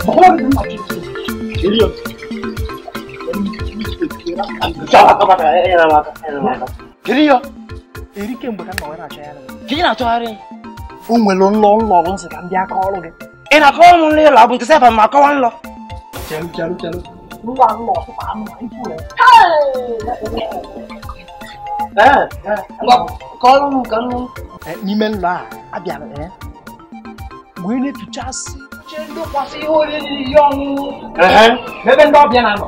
Bakın. Geliyor. Geliyor. Erike mgbe ka nna wee na ya ka ị na-achọgharị o nwere ụlọ ụlọ ọrụ nsị ka m bịa kọọ ọrụ ị na-akọ ọrụ nri ụlọ bụ nke sefa ma kọwa nlọ chelụ na ikwu ya n'ime ụlọ a abịara nke ị na-etucha asị oche ihe oriri ihe ọṅụṅụ ebe ndị ọbịa na-anọ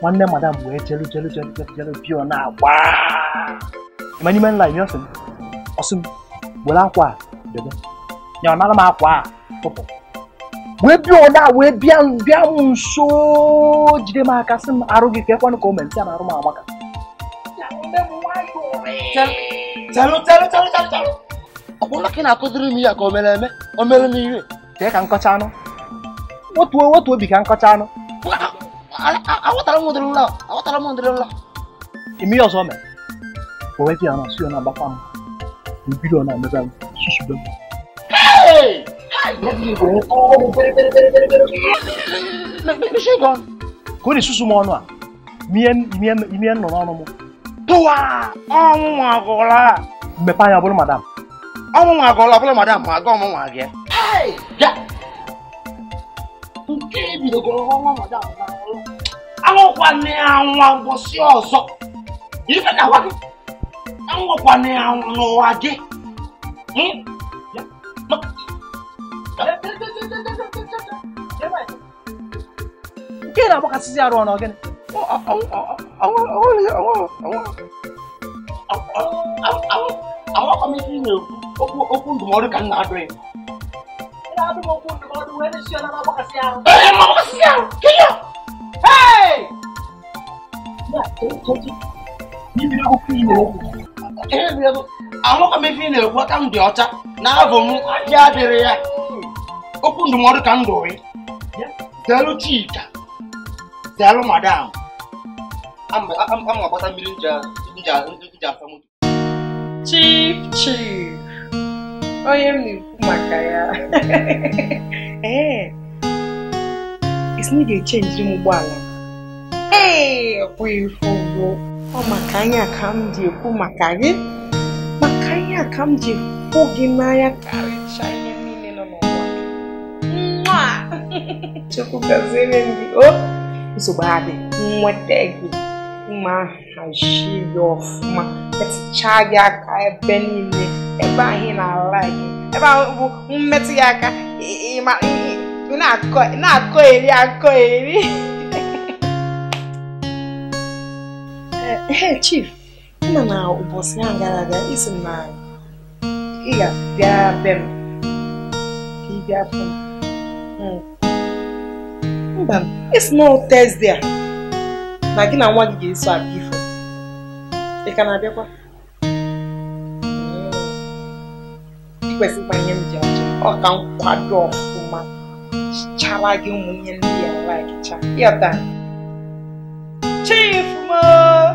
nwanne madam wee chelu chelu chelu chelu pio na-agba ịma n'ime nla ime ọsị ọsị m akwa a debe ya ọ nara m akwa a tụpụ wee bịa ọda wee bịa bịa m nso jide m aka sị m arụ gị ka ekwenụ ka o mere ntị a na-arụ m amaka ọ bụrụ na ị na-akụziri m ya ka o mere eme o mere m ihe tee ka nkọcha anụ wetuo wetuo obi ka nkọcha anụ awụtara m ụdịrị nla awụtara m ụdịrị nla ime ihe ọzọ mere o wee bịa na si ọ na-agbakwa m mbido ọ na-emeza m susube m ka ọ na-esusu m ọnụ a imie nọ n'ọnụ m tụwa ọnwụ nwa agụla mmepe anya bụrụ madam ọnwụ nwa agụla bụrụ madam ma aga ọmụnwa gị kai ya nke ebidogoro ọnwa mada anwụkwana anwa mbọsị ọzọ ife na agwa gị anwụkwana anwụ n'ụwa gị nke na-agbakasịzi arụ ọnụ gịnị anwụkwa m ife ị na-ekwu okwu ndụmọdụ ka m na-adụ ya Eh, mau kesian, kaya. Hey! Ya, jadi, ni bila aku pilih aku. Eh, bila aku, àwọn kan bɛ fi ne wa kan di ɔta n'a fɔ mu a diya dere ya o kun dumuni kan do ye dalu ti ta dalu ma da an an an ka bɔta miiri ja ja ja fɛn chief chief. onye m na-ekwu maka ya ee isi na ga-echenjiri m ụgbọala ee ọkwụghị ife ugbo ọ maka anya ka m ji ekwu maka gị maka anya ka m ji ekwu gị n'anya karịchaa ihe niile nọ n'ụwa nwa chukwu gaziere m gị o nsogbu adị nweta gị mma hazie gị ọfụma metụchaa gị aka ebe niile ebe anyị na ala gị ebe ahụ bụ mmetụ ya aka na-akọ eri akọ eri eh, eh, chief nna na ụbọchị ahụ gara aga isi na ị ga-abịara be m ka ị bịa fụ hmm. mba isi na Thursday a na gị na nwa gị ga-eso abịa ifo ị ka na-abịakwa kwesịkwa ihe m ji achọ ọ ka nkwado ọfụma chara gị ndị ya laikcha ịghọta chifụma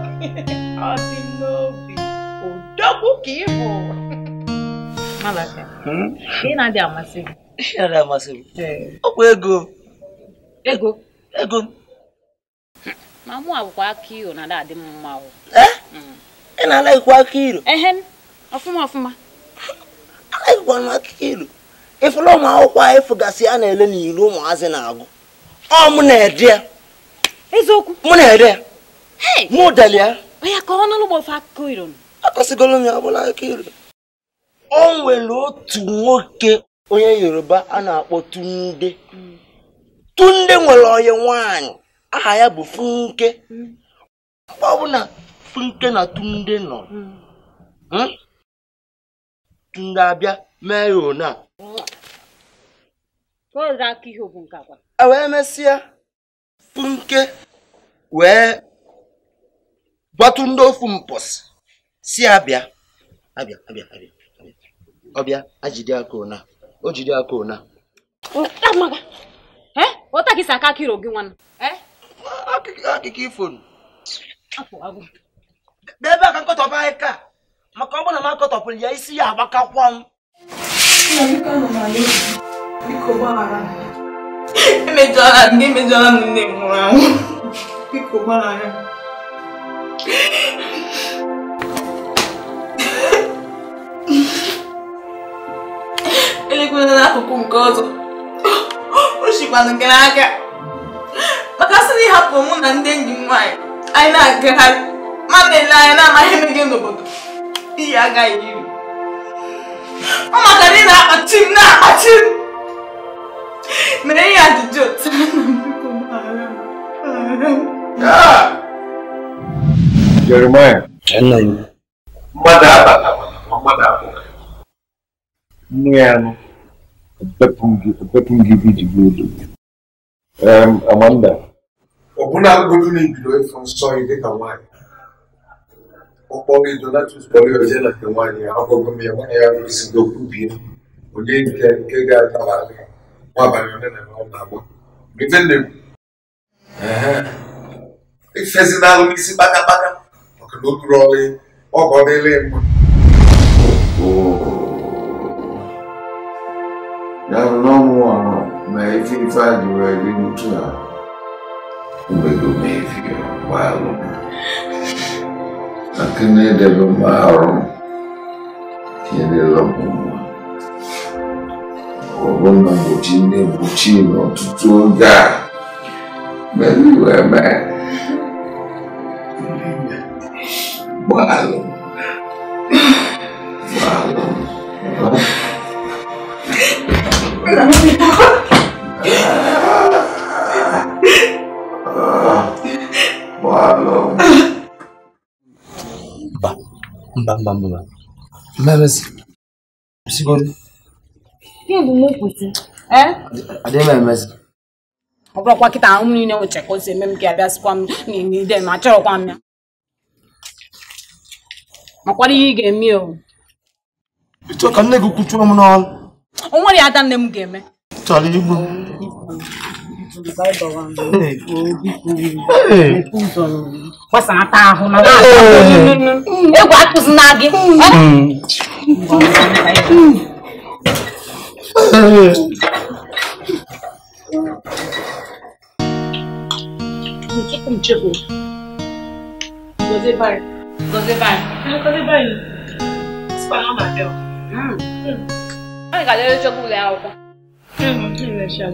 <laughs> ọ dị n'obi odogwu ka ị bụ <laughs> hmm? ị na-adị amasị gị ego ego ego ma mụ iro na-adị mma eh? hmm. ị na iro ehe ọfụma ọfụma anaghị gwa m ilu ịfụla ụmụ akwụkwọ a ịfụgasị a na-ele n'ilu ụmụazị na-agụ ọ mụ na-ede ya eziokwu mụ na-ede ya mụ deli ya akọsigoro m ya ọbụla akụkọ ilu o nwere otu nwoke onye yoruba a na-akpọ tunde hmm. tunde nwere onye nwanyị aha ya bụ funke mgbe hmm. ọbụla funke na tunde nọ hmm. ndị abịa mee ya one a e wee mesịa punke wee gbatụ ndị ofu mpọsị si abịa abịa abịa abịa ọbịa ajide aka ona o jide aka ona ụtakịsa aka akịrị gị nwanne akụkọ ifo ebe aka nkọtọba anyị ka maka ọ bụrụ na m akọtọpụrụ ya isi ya agbakakwa m emejọla ndị emejọla nne m nwụrụ n'akụkụ nke ọzọ gị n'aka maka sị na ịhapụ mụ na ndị enyi m nwaanyị anyị na-agagharị ma na-ele anya na-amaghị n'obodo Iyi agaghị iri. Ọ maka na ị na-akpati m na-akpati m. Mere ihe ajụjụ otu Jeremiah. Nna ya. Mmadụ abata mmadụ Amanda. Ọ bụla agụgụ na ibido ịfụ nsọ gị dịka nwaanyị. ụkpọbido natuspọlioje na nke nwaanyị ya m ya nwaanyị ya rụzigo kwubie onye nke nke ga na ọ na-agba ife nne m ifezi n'isi maka na o ọlị ọgọ dịle mma ya bụ n'ọnwụ ọrụ ma ife ife a jụrụ eri n'utu gbaa lakini ndivyo maalum kyenelakuma obona mutine mutino tutunga meliweme maalum maalum mba mba mba mmemezi ihe bụ m kwụsị adịghị m ọ bụrụkwa kịta ahụ niile o si eme m ka abịa sikwa m n'ide m ya makwara ihe ị ga-eme o ịchọ ka nne gị kwuchuo m n'ọrụ o nwere ya ada nne m ga-eme chọrọ igbu gbasara ata ahụ na egwu akụzina gị Tudo O que Você vai. Você vai. Você vai. Espalhar o Matel. Hum. Ai, galera, eu jogo o Léo. Hum, que legal.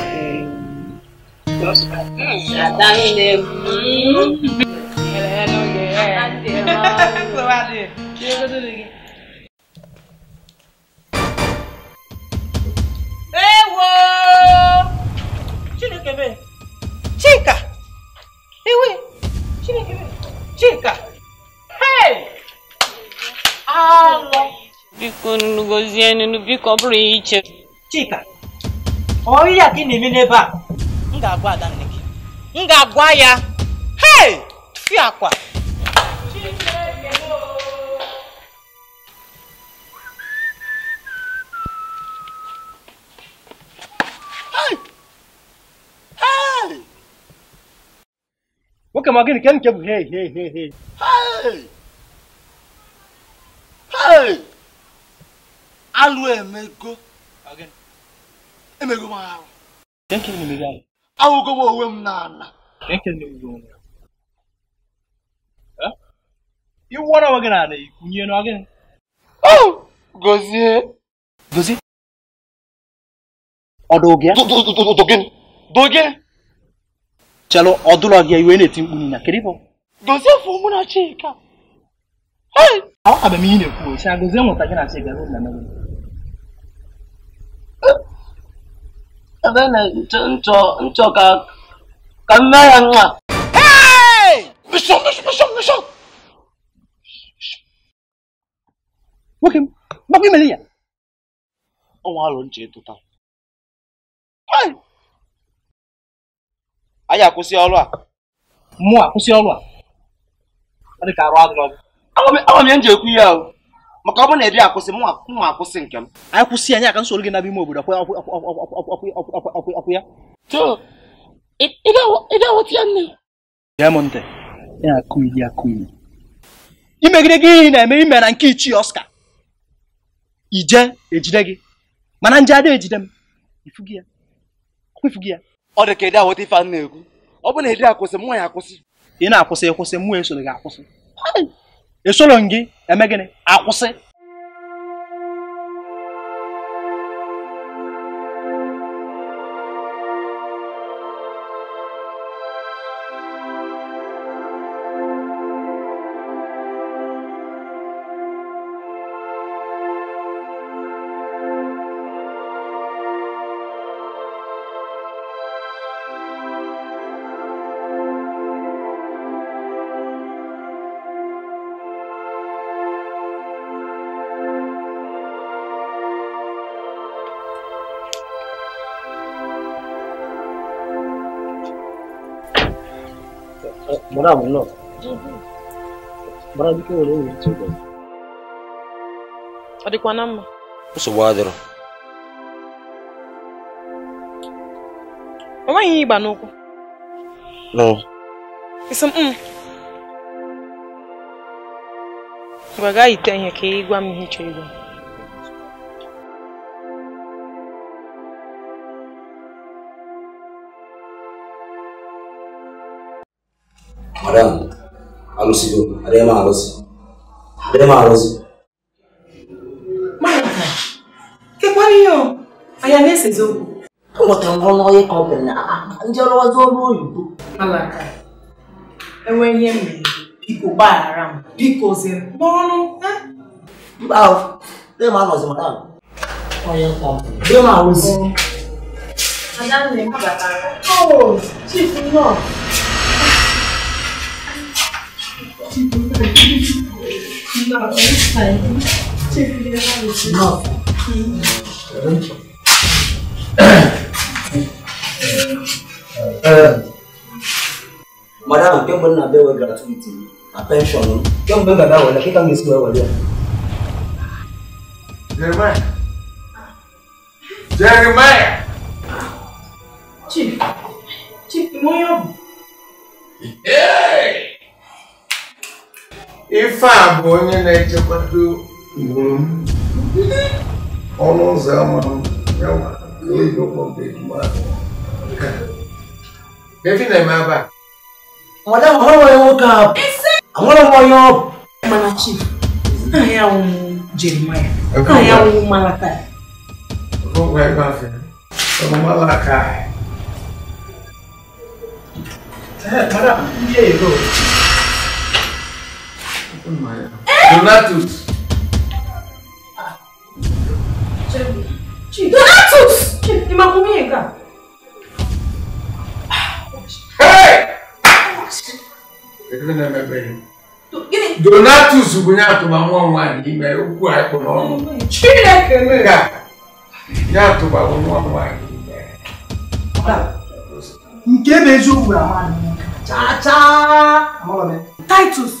chika ewe chinekebe chika hey alọ biko nnugozienu biko ọ bụrụ iche chika ọ ihe a ka na-eme n'ebe a m ga-agwa ada nne gị m ga-agwa ya hei fi akwa nwoke ma gịnị ke nke bụ hei hei hei hei alụ emego emego m arụ ahụgowa onwe m n'ala oh! gozie gozie chelụ ọdụlọ gị iwe na-eti mkpu na keribụ gozie fụ mụ na chika ọ ihe na-ekwu ochi gozie nwụta gị na chika nchoka ka mme ya nwa nwoke m gbakwa imere ya ọnwa alụ nche tụta anyị akwụsị ọrụ a mụ akwụsị ọrụ a ọ dị ka arụ adịrọ agwa m ya nji ekwu ihe ahụ maka ọ bụ na ejiri akwụsị mụ akwụsị nke m anyị kwụsị anyị aka nsoro gị n'ime obodo akwụ ya imegide gị ihe na-eme ime na nke ichie Oscar ije ejide gị mana nje ada ejide m ifugi ya ọ dị ka ede aghọta ife a na-ekwu ọ bụ na ede akwụsị mụ ya akwụsị ị na-akwụsị ịkwụsị mụ esoro gị akwụsị gị eme gịnị akwụsị bọ̀dá àwọn náà bọ̀dá bí kí wọ́n lè wọ́n ti bọ̀. ọ̀dìpọ̀ náà mọ̀. ó sì dịrị. o nweghị ihe ịgba n'ụkwụ. isi m gwa gaa ite ihe ka ị gwa m haram alusigo harema arosi harema arosi malaka kekwariyo ayanesezoku ụbọchị ngwọ n'onye ka ọ bụrụ na ndị ọrụ ọzọ ọrụ oyibo malaka enwe ihe m mere biko gbaghara m biko zere n'ọnụ mba dem anọzi maka onye nkọmpụ dem arụzi adanne mabatara o oh, chief nọọsụ Madam, kí n bọ́ nínú abẹ́wẹ̀ gratuity attention ni. Kí n bẹ́ bàbá wọlé kí káwọn èsì wọlé. Jeremiah. Jeremiah. Chief, Chief, ìmọ̀ yọ̀ ife a bụ onye na-echekwado iwu m ọnụ ụzọ ama efi na-eme ebe a madam ọhụrụ nwoke a anwụrụ m onye ọ mana chi ahịa anwụwụ jeremaya ahịa anwụwụ malaka malaka Madam, here you go. Eh? Donatus. Ah, Donatus! Ni ma kumi yega. Hey! Ekele na mebe yi. Donatus bụ ya atụba nwa nwa n'ime okwu a ịkpụ n'ọnụ. Chineke nega. Ya atụba nwa nwa n'ime. Nke bụ eziokwu bụ amadị. Cha cha! Titus.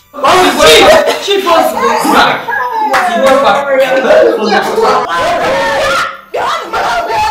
Oh, she, she was black. She was black.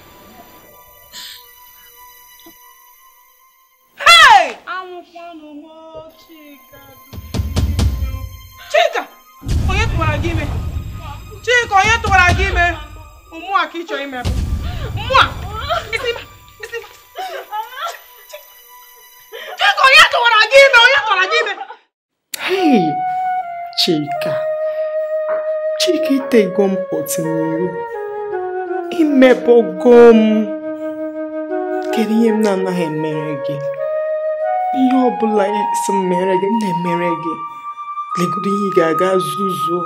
chika onye tụwara gị ime chika onye tụwara gị ime mmụọ ka ị chọrọ ime bụ mmụọ chika onye tụwara gị ime onye tụwara gị ime chika chika itego m pọtinihu imebogo m kedu ihe m na-anaghị emere gị ihe ọbụla si mere gị na-emere gị legodo ihe ị ga-aga zuzuo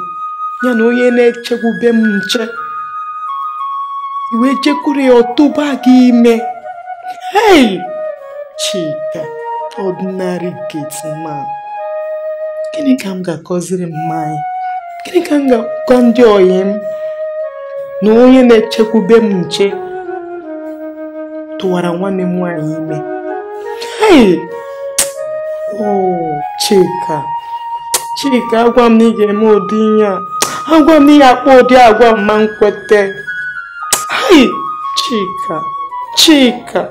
ya na onye na-echekwube m nche iwe jekwuru ya ọtụba gị ime hei chika ordinary gate man gịnị ka m ga-akọziri mma anyị gịnị ka m ga-akọ ndị oyi m na onye na-echekwube m nche tụwara nwanne m nwaanyị ime hei Chika Chika agwa m na ị ga-eme ụdị ihe a agwa m na ihe akpa ụdị agwa m ma nkwete Chika Chika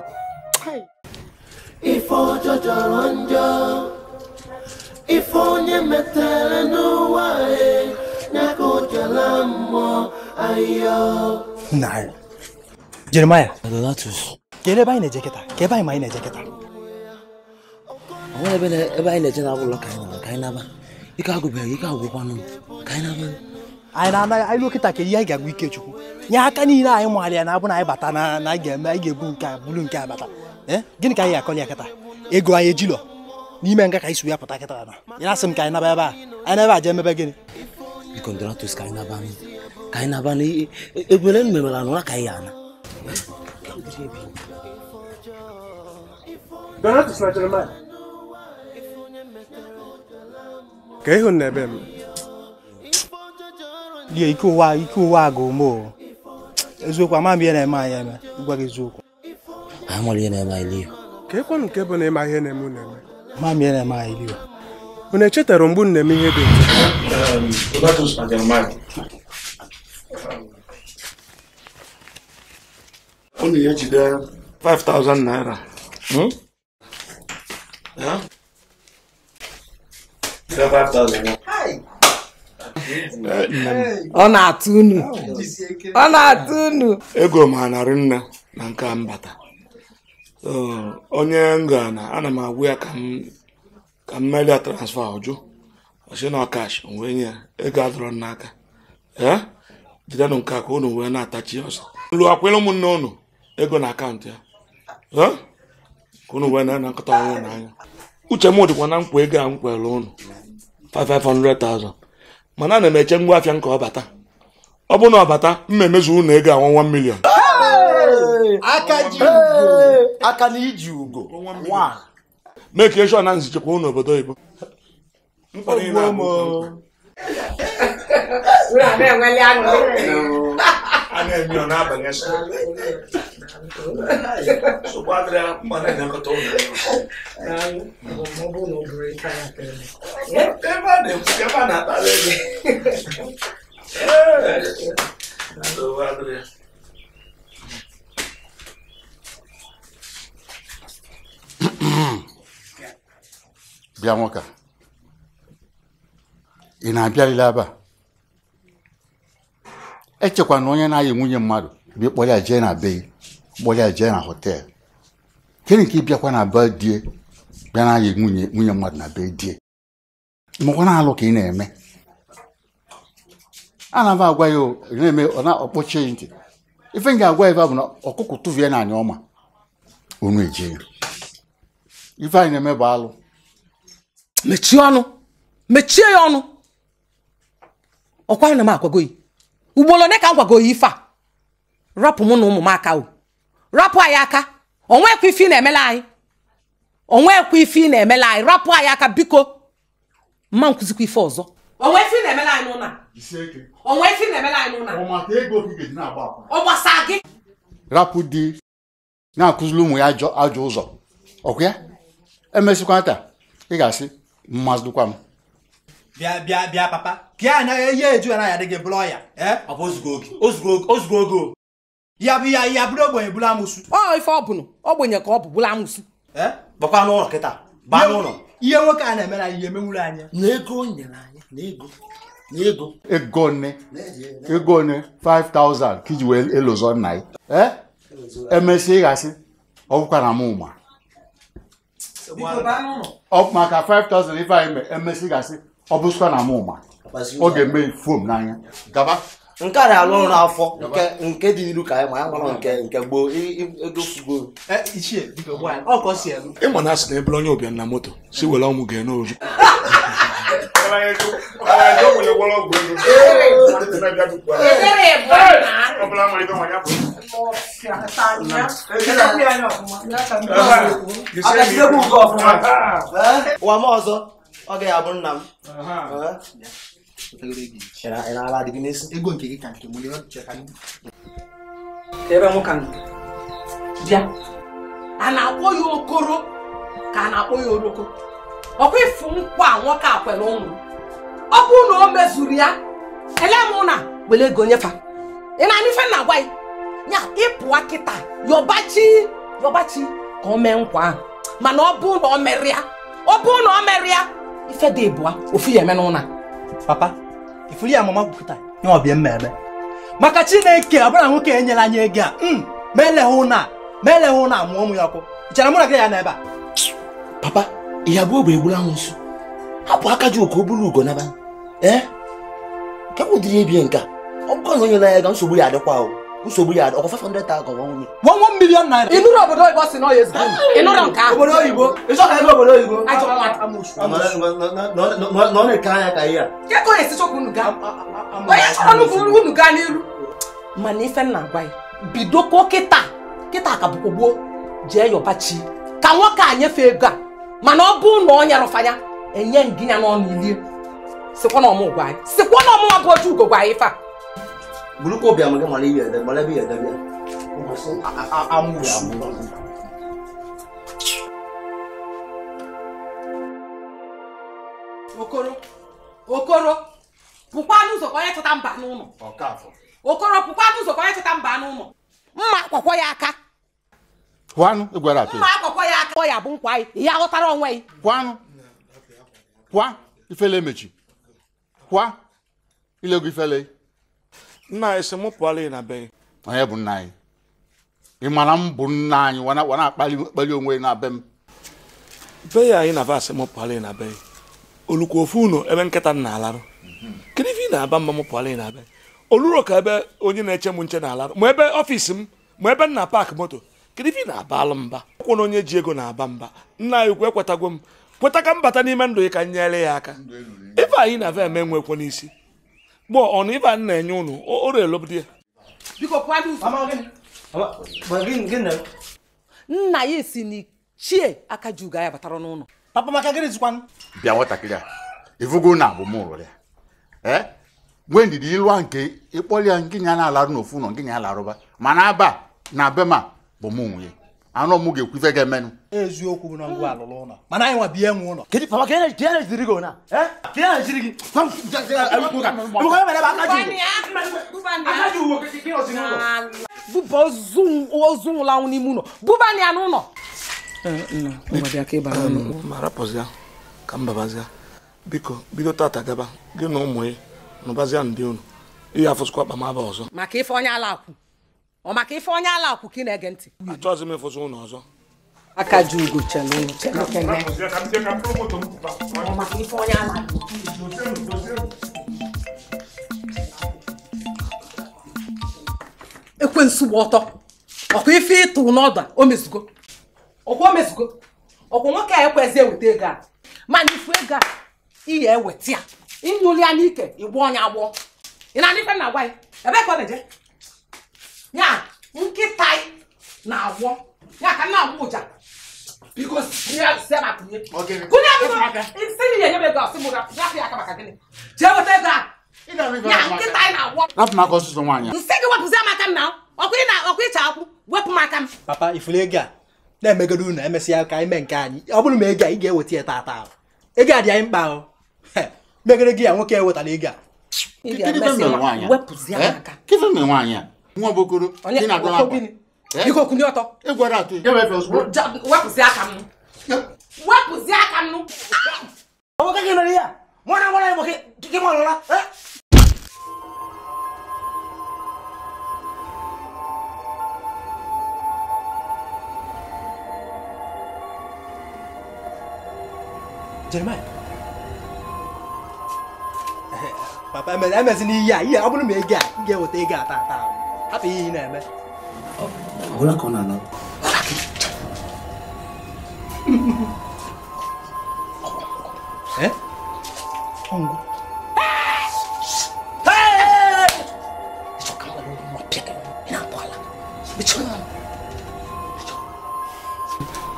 ife ọjọ jọrọ njọ ife onye metere n'ụwa ya e, ojala o jela mmụọ ahịa Jeremaya Donatus ka ebe anyị na-eje kịta ka ebe anyị ma anyị na-eje kịta onwere ebe ebe anyị na na ụlọ ka anyị naba ka anyị naba ike agụbeghị ike agwụkwanụ ka anyị naba anyị na-anaghị anyị dọkịta ka ihe anyị ga ike chukwu nye aka niile anyị maara ya na abụ na anyị bata na na anyị ga-eme anyị ga-ebu nke a nke a bata eh? gịnị ka anyị ga-akọli ya kịta ego anyị ejilọ n'ime nga ka anyị si ya pụta kịta na ya asị m ka anyị naba ebe a anyị naba emebe gịnị ka anyị naba ka anyị naba na ka anyị ana Donatus na Jeremiah ka ịhụ na ebe m ya ike ụwa ike ụwa ga ume o eziokwu ama m ihe na-eme anyị eme gwa gị eziokwu amara ihe na-eme anyị liyo ka ekwe nke bụ na ịma ihe na-eme unu eme ama m ihe na-eme anyị liyo unu echetara mgbe unu na-eme ihe dị ọ na-ejide 5000 naira ọ na-atụ unu ọ na-atụ unu ego m ha narị nna na nke mbata onye nga ana m agwa ya ka m melia transfa ọjụ ọsị na ọkash onwe nye ya ego adọrọ n'aka jidenụ nke a ka unu wee na-atachi ọsọ lụ akwụla ụmụnne unu ego na akaụntụ ya ka unu wee na-anakọta ọnwụ n'anya uche m dịkwa na nkwa ego a m kwere unu 500,000 mana ana m eche ngwa afịa nke ọbata ọ bụ na ọbata mma emezu ụnụ ego awa 1 million aka na iji ugo meke shọ na nzichekwa ụnụ obodo oyibo mkpọrọ ị na-abụ a na ọ n'abalị asa nsogbu adịrị mba na-enyekọta ụlọ ebe a na-ekwu ebe a na-akpara ego bịa nwoke ị na-abịalile ebe echekwa na onye na-ayị nwunye mmadụ bịa kpọrọ jee na be kpọrọ ya jee na họteelụ gịnị ka ịbịakwa na be die bịa na-ayị nwunye nwunye mmadụ na be die makwa na-alụ ka ị na-eme ana m agwa ya na-eme ọ na-akpọchi ntị ife m ga-agwa ebe bụ na ọkụkọ tụvie na anyị ọma unu eje ya ife anyị na-eme bụ alụ mechie ọnụ mechie ya ọnụ ọkwa anyị na m agwago ya ugboro ne ka m gwago ya ife a rapụ mụ na ụmụ m aka o rapụ anyị aka onwekwa ife ị na-emela anyị onwekwa ife ị na-emela anyị rapụ anyị aka biko mma nkụzikwa ife ọzọ onwe ife ị na-emela anyị n'ụlọ onwe ife ị na-emela anyị n'ụlọ ọ gbasa gị rapụ di na-akụziri ụmụ ya ajọ ụzọ ọkwa ya emesịkwa taa ị ga-asị mmasịkwa m bịa bịa bịa papa ya n'a ihe eh, eju anaghị adị gị bụrụ ya eh? ọ bụ oge o ya bụ ya ya bụrụ ogbenye bụrụ ọ ife ọ bụnụ ogbenye ka ọ bụ bụrụ amụsụ gbakwa eh? n'ụlọ kịta baa n'ụlọ ihe nwoke a na-eme na anya na ego anyị na ego na ego nne ego nne 5000 ka iji wee nna ya ịghasị ọ maka 5000 ife anyị ịghasị ọ bụzikwa na ọ ga fom n'anya gaba nke a na-alụ n'afọ nke dị ilu ka anyị ma ya mara nke nke gboo egofugo eh, ịma na asị na ebere onye ụbịa na moto si were ọmụ ga-ene <laughs> ụwa m ọzọ ọ ga-abụ nna m na-ala adịghị n'isi ego nke gị ka nke m ebe m ka bịa a na-akpọ ya okoro ka a na-akpọ ya oroko ọkwa ịfụ nkwa nwoke a kwere ụmụ ọ bụrụ na o mezuru ya elee m na were ego nyefa ị na-anụ ife na-agwa ya ya ịpụwa kịta yọbachi yọbachi ka o mee nkwa mana ọ bụ na ọ merịa ọ bụ na ọ merịa ife dị ịbụa ofu ya eme n'ụna papa ifuru ya mama kwupụta nye ọbịa maka chineke ọbụla nwoke nyela anyị ego a ma eleghị ụna ma eleghị amụọ ụmụ ya ọkụ chara mụ na gị ya n'ebe a papa ihe abụọ bụ egburu nso hapụ aka ji oke oburu ugo naba ee nke bụ ụdịrị nka ọ bụkọ na onye na ya ga nsogbu ya adịkwa ahụ usogburu ya ọkwa 500,000 ọkwa 1 1 million naira inú rẹ̀ obodo ìbọn sí náà yẹ sí inú rẹ̀ nǹkan obodo òyìnbó ìṣọ́ka ẹgbẹ́ obodo òyìnbó ajọba wa ta mọ̀ṣù nọ nìka anya ka ihe a kẹ́kọ̀ọ́ èsì chọkwu unu gaa onye chọrọ nukwu unu gaa n'iru mana ife m na-agwa ya bidoko kịta kịta ka bụkwa gboo jee yọba chi ka nwoke a nyefee ego a mana ọ bụ na ọ nyarụfanya enye ngịnya n'ọnụ ilie sikwa na ọmụ gwa anyị sikwa na ọmụnwa bụ otu ugo gwa anyị fa bulu ko biya mage mali biya da mala biya da biya amu ya amu okoro okoro pụkwa n'ụzọ ka onye chọta mba n'ụlọ okoro pụkwa n'ụzọ ka onye chọta mba n'ụlọ mma akwọkwọ ya aka pụanụ ịgwara atụ mma akwọkwọ ya aka ya bụ nkwa anyị ihe aghọtara onwe gị pụanụ pụa ifele emechi pụa ilego ifele nna anyị sị mụ pụọla ị na be gị onye bụ nna anyị ị mara m bụ nna anyị wa akpali onwe na be m be ya anyị na-aba asị mụ pụọla ị na be gị olukwu ofu unu ebe nkịta m na-alarụ kedu ife ị na-aba mma mụ pụọla ị na be oluro ka ebe onye na-eche m nche na-alarụ ma ebe ọfiisi m ma ebe nna paakị moto kedu ife ị na-aba alụ mba ụkwụ na onye ji ego na-aba mba nna anyị ukwu ekwetago m kweta ka m bata n'ime ndụ gị ka m nyere ya aka ife anyị na-aba eme nwekwo n'isi gbọ ọnụ ibe a na-enye unu oro elobidi ya nna ya si na chie aka ji ugo ya batara n'ụlọ papa maka gịnị zikwanụ bịa nwatakịrị a ịvụgo na abụ mụrụ ya ee eh? nwee ndidi ilu nke ịkpọrọ ya nke nya na-alarụ n'ofu ụlọ nke nya larụba mana aba na be bụ m onwe ya anụ ọmụ ga-ekwufe gị emenụ eziokwu bụ na ngwa alụrụ ụlọ mana anyị nwa bie nwe ụlọ kedu papa ka ka na-ejiri gị na ka ya na-ejiri gị buba ozu nwụlanwụ n'ime ụlọ bubani ya n'ụlọ marapụzia ka mbabazia biko bido tata gaba gị na ụmụ ya nụbazia ndị unu ihe afụsịkwa ọzọ maka ife onye ala akwụ ọ maka ife onye ala akwụ ị na-ege ntị achọghịzi m ịfụzi ụlọ aka ji ugo chelu ekwensu gba ọtọ ọkwa ife ịtụ n'ọdụ o mezugo ọkwa o mezugo ọkwa nwoke a ekwezi eweta ego a mana ifu ego a iyi eweta ya inyụli ya n'ike ịgba ọnya agbọ ị na-adịfe na agwa ya ebe ka ọ na-eje ya nkịta na-agwọ ya ka nna agwọ ụja biko kunye ya maka gịnị jee a na-agwọ rapụ m nsị gị wepụzie aka m na ị na ịcha akwụ wepụ m aka m papa ifuru ego a na-emegoro unu emesịa ka nke anyị ọ bụrụ ma ego a ị ga-eweta ya taata ego a dị anyị mkpa ahụ megoro gị ya nwoke ewetara ego a wepụzie aka nwa bokoro ị na-agụ akwa biko kwunye ọtọ ị gwara atụ wepụzi aka m wepụzi aka m nwoke gị mere ya mụra nwara ya nwoke gị nwarụla Jeremiah papa emezina ihe a ihe ọ bụrụ ma ia, ia, m ga-eweta ego a taa taa a p ụ ihe n i e m e ọbụla ka ọ na-anọ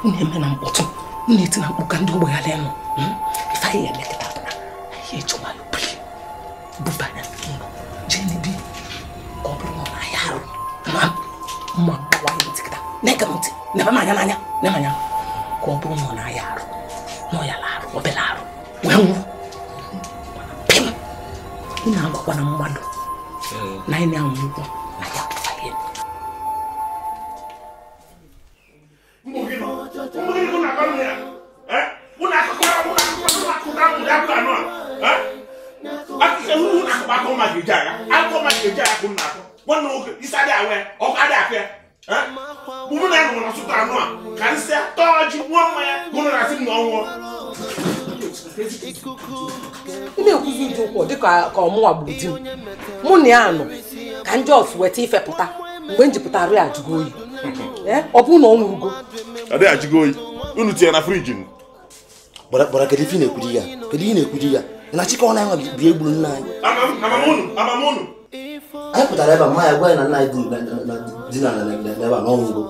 na-eme na mkpọtụ na-eti na mkpụ ka ndị ogbe ya lee nụ ife anyị ya r m e t ụ t a bụ na ihe eji ụ m a l u l i buba gị ntị nebe m anya n'anya nebe anya ka ọ bụrụ na ọ na-aya arụ na ọ ya larụ obere arụ wee nwụrụ pim ị na-agwakwa na mmadụ na ị na-anwụ ụgwọ na ya Akụkọ mmadụ eji agha, akụkọ mmadụ eji agha bụ nna akụ, nwanne nwoke, isi adịghị awa ya, ọkụ adịghị akụ ya. mụ na ya nọrọ sụta anụ a ka nsị tọọ ji gbuo mmanya mụ na asị m na ọnwụọ m na-ekwuzi ndị ụkwụ dị ka ọmụnwa gburu di m mụ na ya nọ ka ndị ọsụ weta ifepụta mgbe m jipụtara ya ajụgo oyi <laughs> eh, ọ bụ na ọ nwụrụgo ọ dịghị ajụgo oyi unu tinye na friji m gbara kedu ife na-ekwuri ya kedu ihe na-ekwuri ya na chikọ na ya bi egburu nna anyị amamunu amamunu anyị pụtara ebe a ma ya gwa na nna dị na ebe a n'ọnwụgo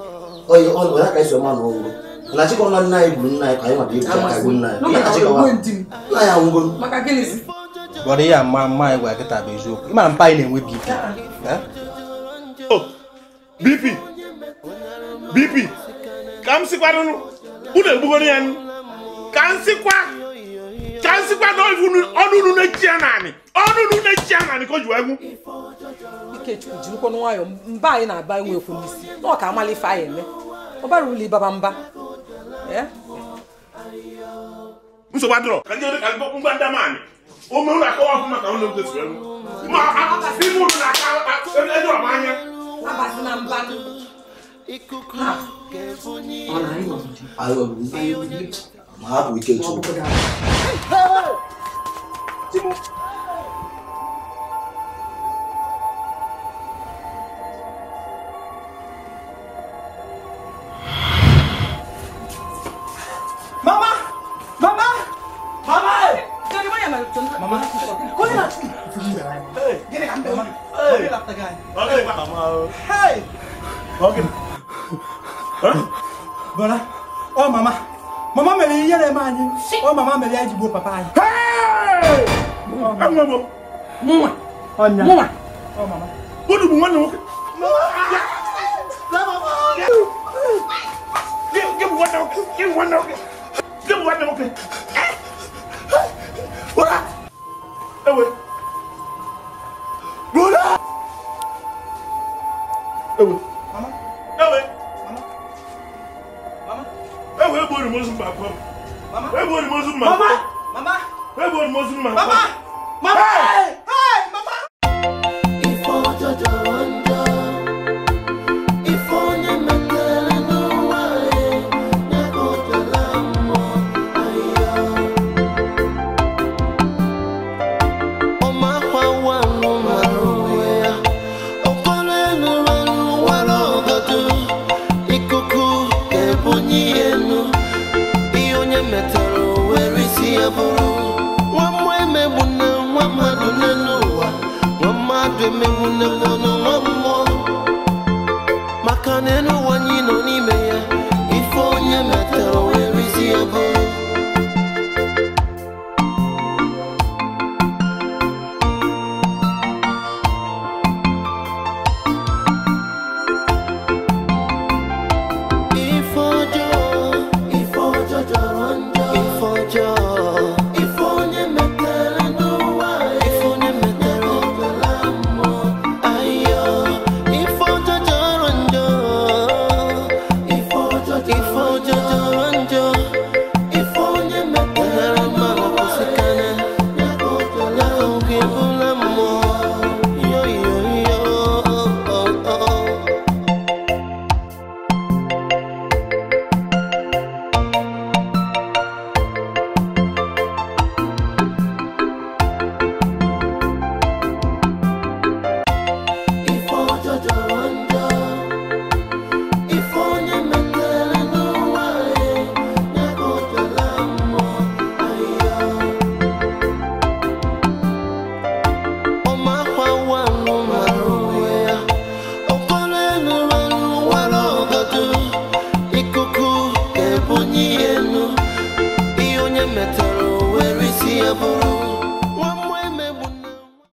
onye ya aka esi ọma n'ọnwụgo na chịkọ na nna anyị gburu nna anyị ka anyị mata ibu aka nna anyị nna ya nwụgo gwara ya ma mma anyị gwara bụ eziokwu mpa anyị na-enwe bp bp bp ka m unu egbugoro ya ka m sikwa ka nzikwa na onu unu na-echi naanị ọnụ unu na-echi naanị ka o jiwa egwu ikechukwu jirikwa nwayọọ mba anyị na-aba enwekwu n'isi na ka amala ife anyị eme ọ bara ụlọ ịbaba mba ka ndị ka ụlọ akọwa ọkụ maka ụlọ e, e, ma na mba ikuku ma hapụ ike chukwu Mama! Mama! Mama! Mama! Mama! Gini kan Mama? Hey! Bakit Mama? Hey! Bakit? Hah? Bala? Oh Mama! mama mary yẹlẹ maa nyi Oh mama mary ayi jibo papa Hey, ẹ ŋun mo mu oh mama. mu wa ọ mama. o mama. wọn ni wọn. Give me one now. Give me one now. Give me one now. Bora. Ewe. Bora. Ewe. Mama. Ewe ewu egbo ni mozu mma kọ egbo ni mozu mma kọ egbo ni mozu mma kọ.